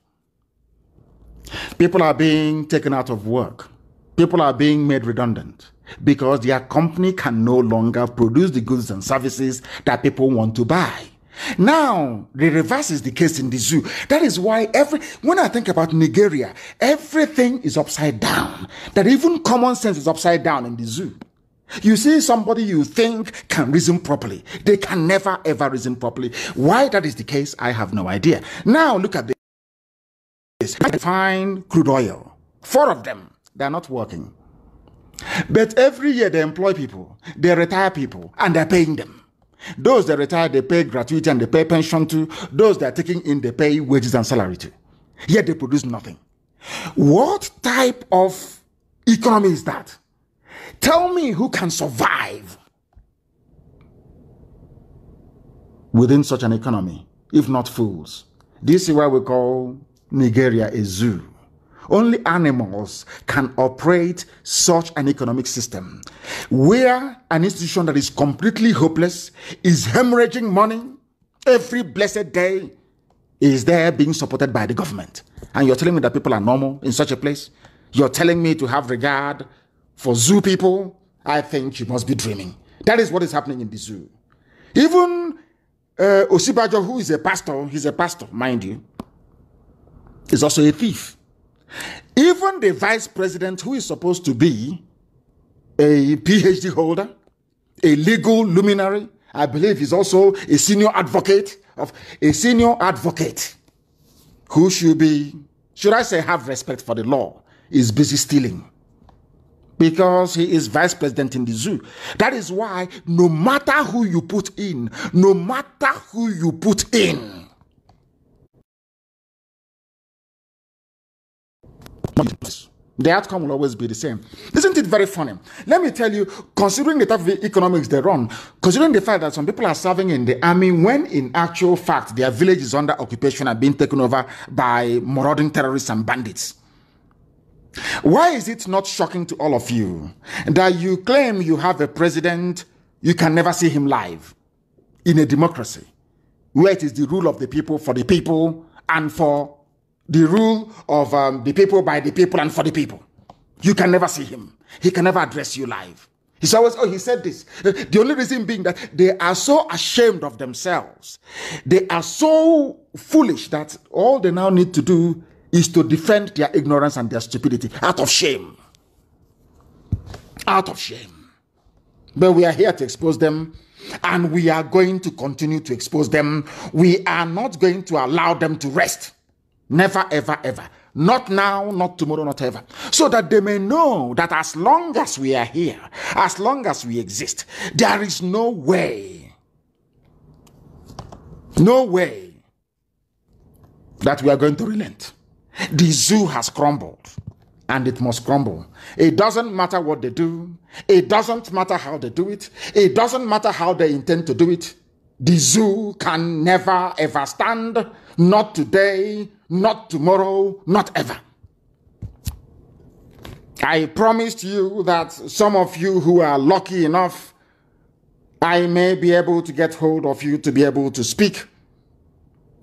People are being taken out of work. People are being made redundant because their company can no longer produce the goods and services that people want to buy. Now, the reverse is the case in the zoo. That is why every, when I think about Nigeria, everything is upside down. That even common sense is upside down in the zoo. You see somebody you think can reason properly. They can never ever reason properly. Why that is the case, I have no idea. Now look at the is refined crude oil. Four of them, they are not working. But every year they employ people, they retire people, and they're paying them. Those that retire, they pay gratuity and they pay pension to. Those that are taking in, they pay wages and salary to. Yet they produce nothing. What type of economy is that? Tell me who can survive within such an economy, if not fools. This is why we call Nigeria a zoo. Only animals can operate such an economic system where an institution that is completely hopeless is hemorrhaging money every blessed day is there being supported by the government. And you're telling me that people are normal in such a place? You're telling me to have regard for zoo people? I think you must be dreaming. That is what is happening in the zoo. Even uh, Osibajo, who is a pastor, he's a pastor, mind you is also a thief. Even the vice president, who is supposed to be a PhD holder, a legal luminary, I believe is also a senior advocate of a senior advocate who should be, should I say, have respect for the law, is busy stealing because he is vice president in the zoo. That is why no matter who you put in, no matter who you put in, The outcome will always be the same. Isn't it very funny? Let me tell you, considering the type of economics they run, considering the fact that some people are serving in the army when in actual fact their village is under occupation and being taken over by marauding terrorists and bandits. Why is it not shocking to all of you that you claim you have a president, you can never see him live in a democracy where it is the rule of the people, for the people, and for the rule of um, the people by the people and for the people. You can never see him. He can never address you live. He's always, oh, he said this. The only reason being that they are so ashamed of themselves. They are so foolish that all they now need to do is to defend their ignorance and their stupidity out of shame. Out of shame. But we are here to expose them and we are going to continue to expose them. We are not going to allow them to rest. Never, ever, ever. Not now, not tomorrow, not ever. So that they may know that as long as we are here, as long as we exist, there is no way, no way that we are going to relent. The zoo has crumbled and it must crumble. It doesn't matter what they do, it doesn't matter how they do it, it doesn't matter how they intend to do it. The zoo can never ever stand not today, not tomorrow, not ever. I promised you that some of you who are lucky enough, I may be able to get hold of you to be able to speak.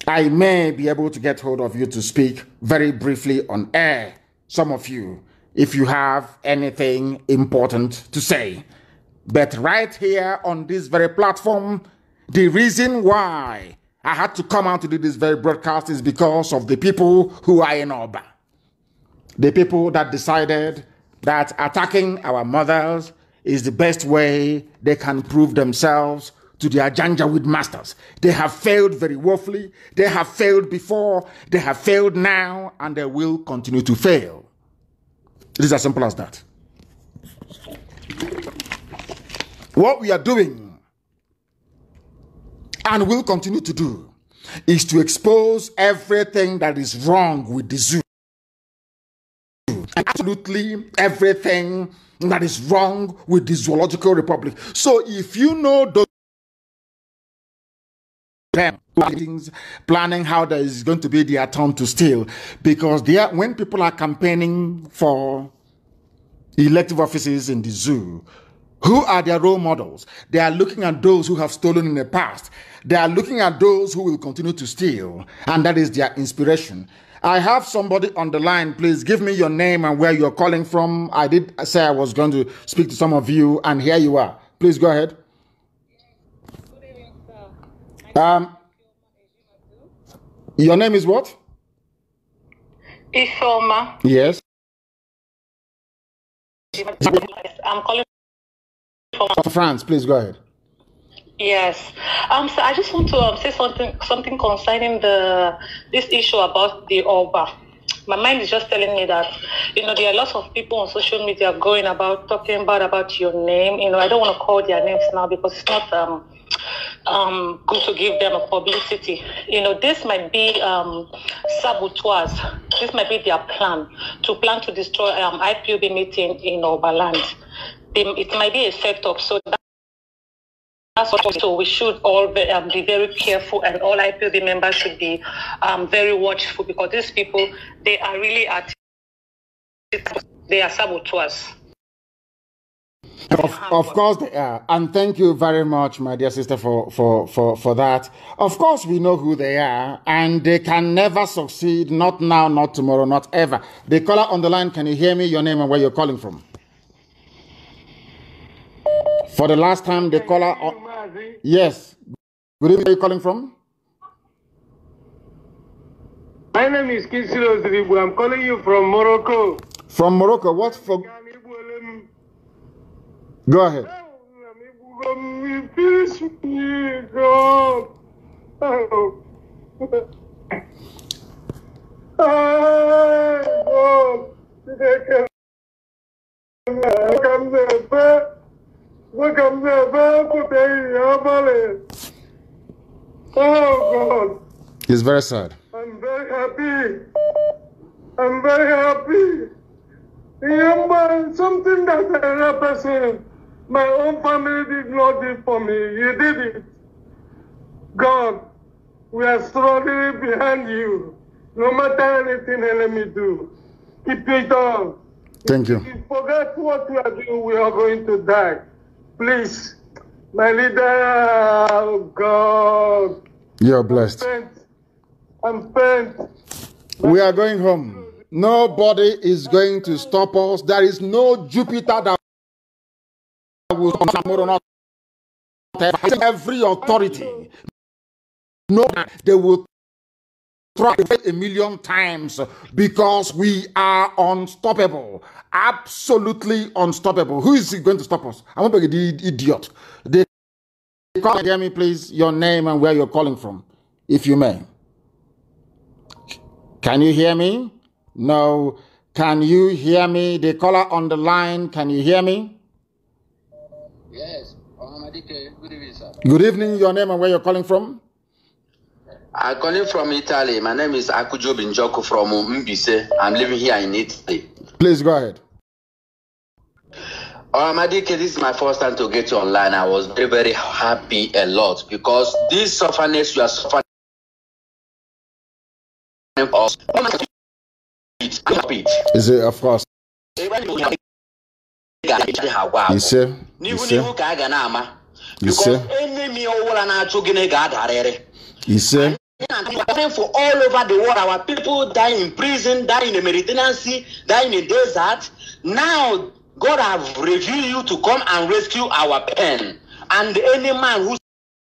I may be able to get hold of you to speak very briefly on air, some of you, if you have anything important to say. But right here on this very platform, the reason why I had to come out to do this very broadcast is because of the people who are in Oba. The people that decided that attacking our mothers is the best way they can prove themselves to their with masters. They have failed very woefully. They have failed before. They have failed now, and they will continue to fail. It is as simple as that. What we are doing and will continue to do is to expose everything that is wrong with the zoo. And absolutely everything that is wrong with the Zoological Republic. So if you know those things, planning how there is going to be their turn to steal because they are, when people are campaigning for elective offices in the zoo who are their role models? They are looking at those who have stolen in the past. They are looking at those who will continue to steal, and that is their inspiration. I have somebody on the line. Please give me your name and where you're calling from. I did say I was going to speak to some of you, and here you are. Please go ahead. Um, your name is what? Isoma. Yes. I'm calling France, please go ahead. Yes, um, so I just want to um, say something something concerning the this issue about the Oba. My mind is just telling me that you know there are lots of people on social media going about talking bad about your name. You know, I don't want to call their names now because it's not um um good to give them a publicity. You know, this might be um saboteurs. This might be their plan to plan to destroy um IPOB meeting in Oberland it might be a setup. So that's what, so we should all be, um, be very careful, and all IPOB members should be um, very watchful because these people they are really at they are saboteurs. Of, of course they are, and thank you very much, my dear sister, for, for, for, for that. Of course, we know who they are, and they can never succeed. Not now, not tomorrow, not ever. The caller on the line, can you hear me? Your name and where you're calling from? For the last time, the caller. Uh, yes. Good evening. Where are you calling from? My name is Kisilo Ziribu. I'm calling you from Morocco. From Morocco. What for? Go ahead. (laughs) I'm Oh God. It's very sad. I'm very happy. I'm very happy. Remember something that another person, my own family did not do for me. You did it. God, we are struggling behind you. No matter anything enemy do, keep it on. Thank you. If you forget what we are doing, we are going to die. Please, my leader, oh God. You're blessed. I'm bent. We are going home. Nobody is going to stop us. There is no Jupiter that will come tomorrow. Not every authority. No, they will a million times because we are unstoppable. Absolutely unstoppable. Who is going to stop us? I'm not the idiot. They can hear me, please, your name and where you're calling from, if you may. Can you hear me? No. Can you hear me? The caller on the line, can you hear me? Yes. Good evening, sir. Good evening, your name and where you're calling from? I'm calling from Italy. My name is Akujo Binjoku from Mbise. I'm living here in Italy. Please go ahead. Oh, Madike, this is my first time to get you online. I was very, very happy a lot because this sufferness you are suffering oh Is it a frost? You see. You see. enemy ọwụla Iṣẹ́. Suffering for all over the world, our people die in prison, die in the Mediterranean Sea, die in the desert. Now, God have revealed you to come and rescue our pen. And any man who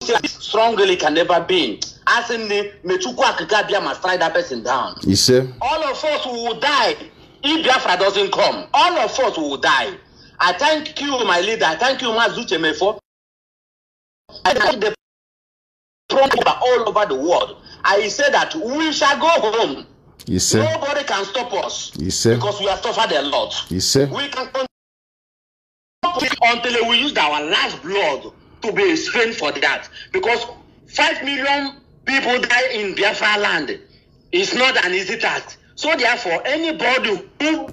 says strongly can never be. As in the Mechukwu Akikabia must try that person down. You see? All of us will die if Biafra doesn't come. All of us will die. I thank you, my leader. I thank you, Mazuchemefo. I thank the thrown all over the world. I say that we shall go home. Yes, sir. Nobody can stop us. Yes, sir. Because we have suffered a lot. Yes, sir. We can continue until we use our last blood to be a for that. Because 5 million people die in Biafra land. It's not an easy task. So therefore, anybody who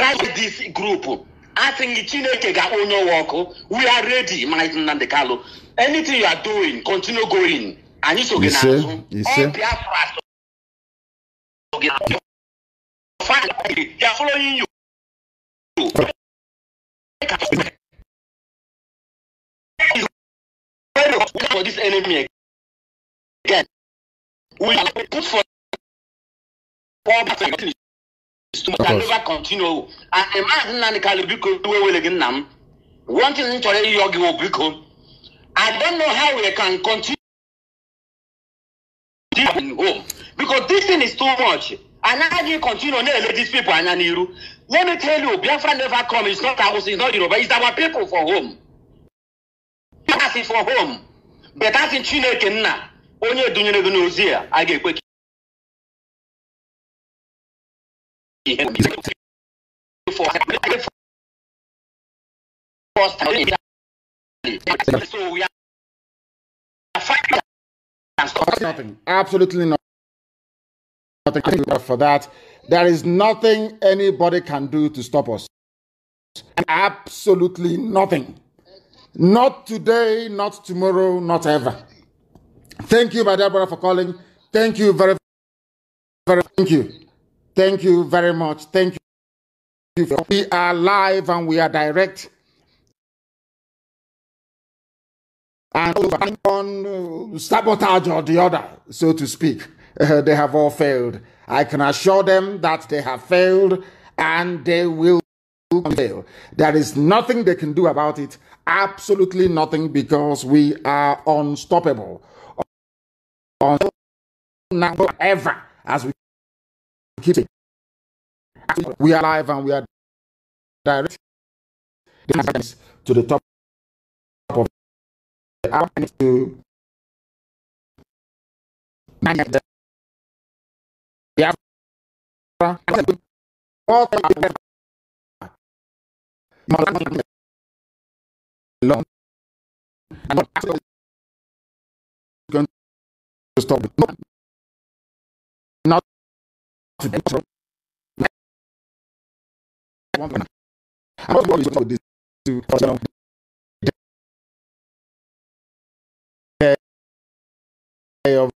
tries this group asịghị chineke ga-akpọ onye ọwa ọkụ we are ready my Nnamdi Kalu anything you are doing continue going anyị so gị azụ ọ Biafra so gị n'azụ they following you for this enemy again we are put for too much. I never continue. And a man nani kali biko wewele gin nam. Wanting nchore yogi wo biko. I don't know how we can continue in home because this thing is too much. And how do you continue to let these people and you? Let me tell you, Biafra never come. It's not ours. It's not Yoruba. It's our people for home. That's for home. But that's in Chineke na. Onye dunyere gị n'ozi a, a ga-ekwe ihe so nothing nothing for that there is nothing anybody can do to stop us absolutely nothing not today not tomorrow not ever thank you my dear brother for calling thank you very very thank you Thank you very much. Thank you. We are live and we are direct. And on uh, sabotage or the other, so to speak, uh, they have all failed. I can assure them that they have failed and they will fail. There is nothing they can do about it. Absolutely nothing because we are unstoppable. now ever as we keep it. We are live and we are direct to the top of the hour to nine the long and going to stop. Okay. I'm not going to this to personal. Of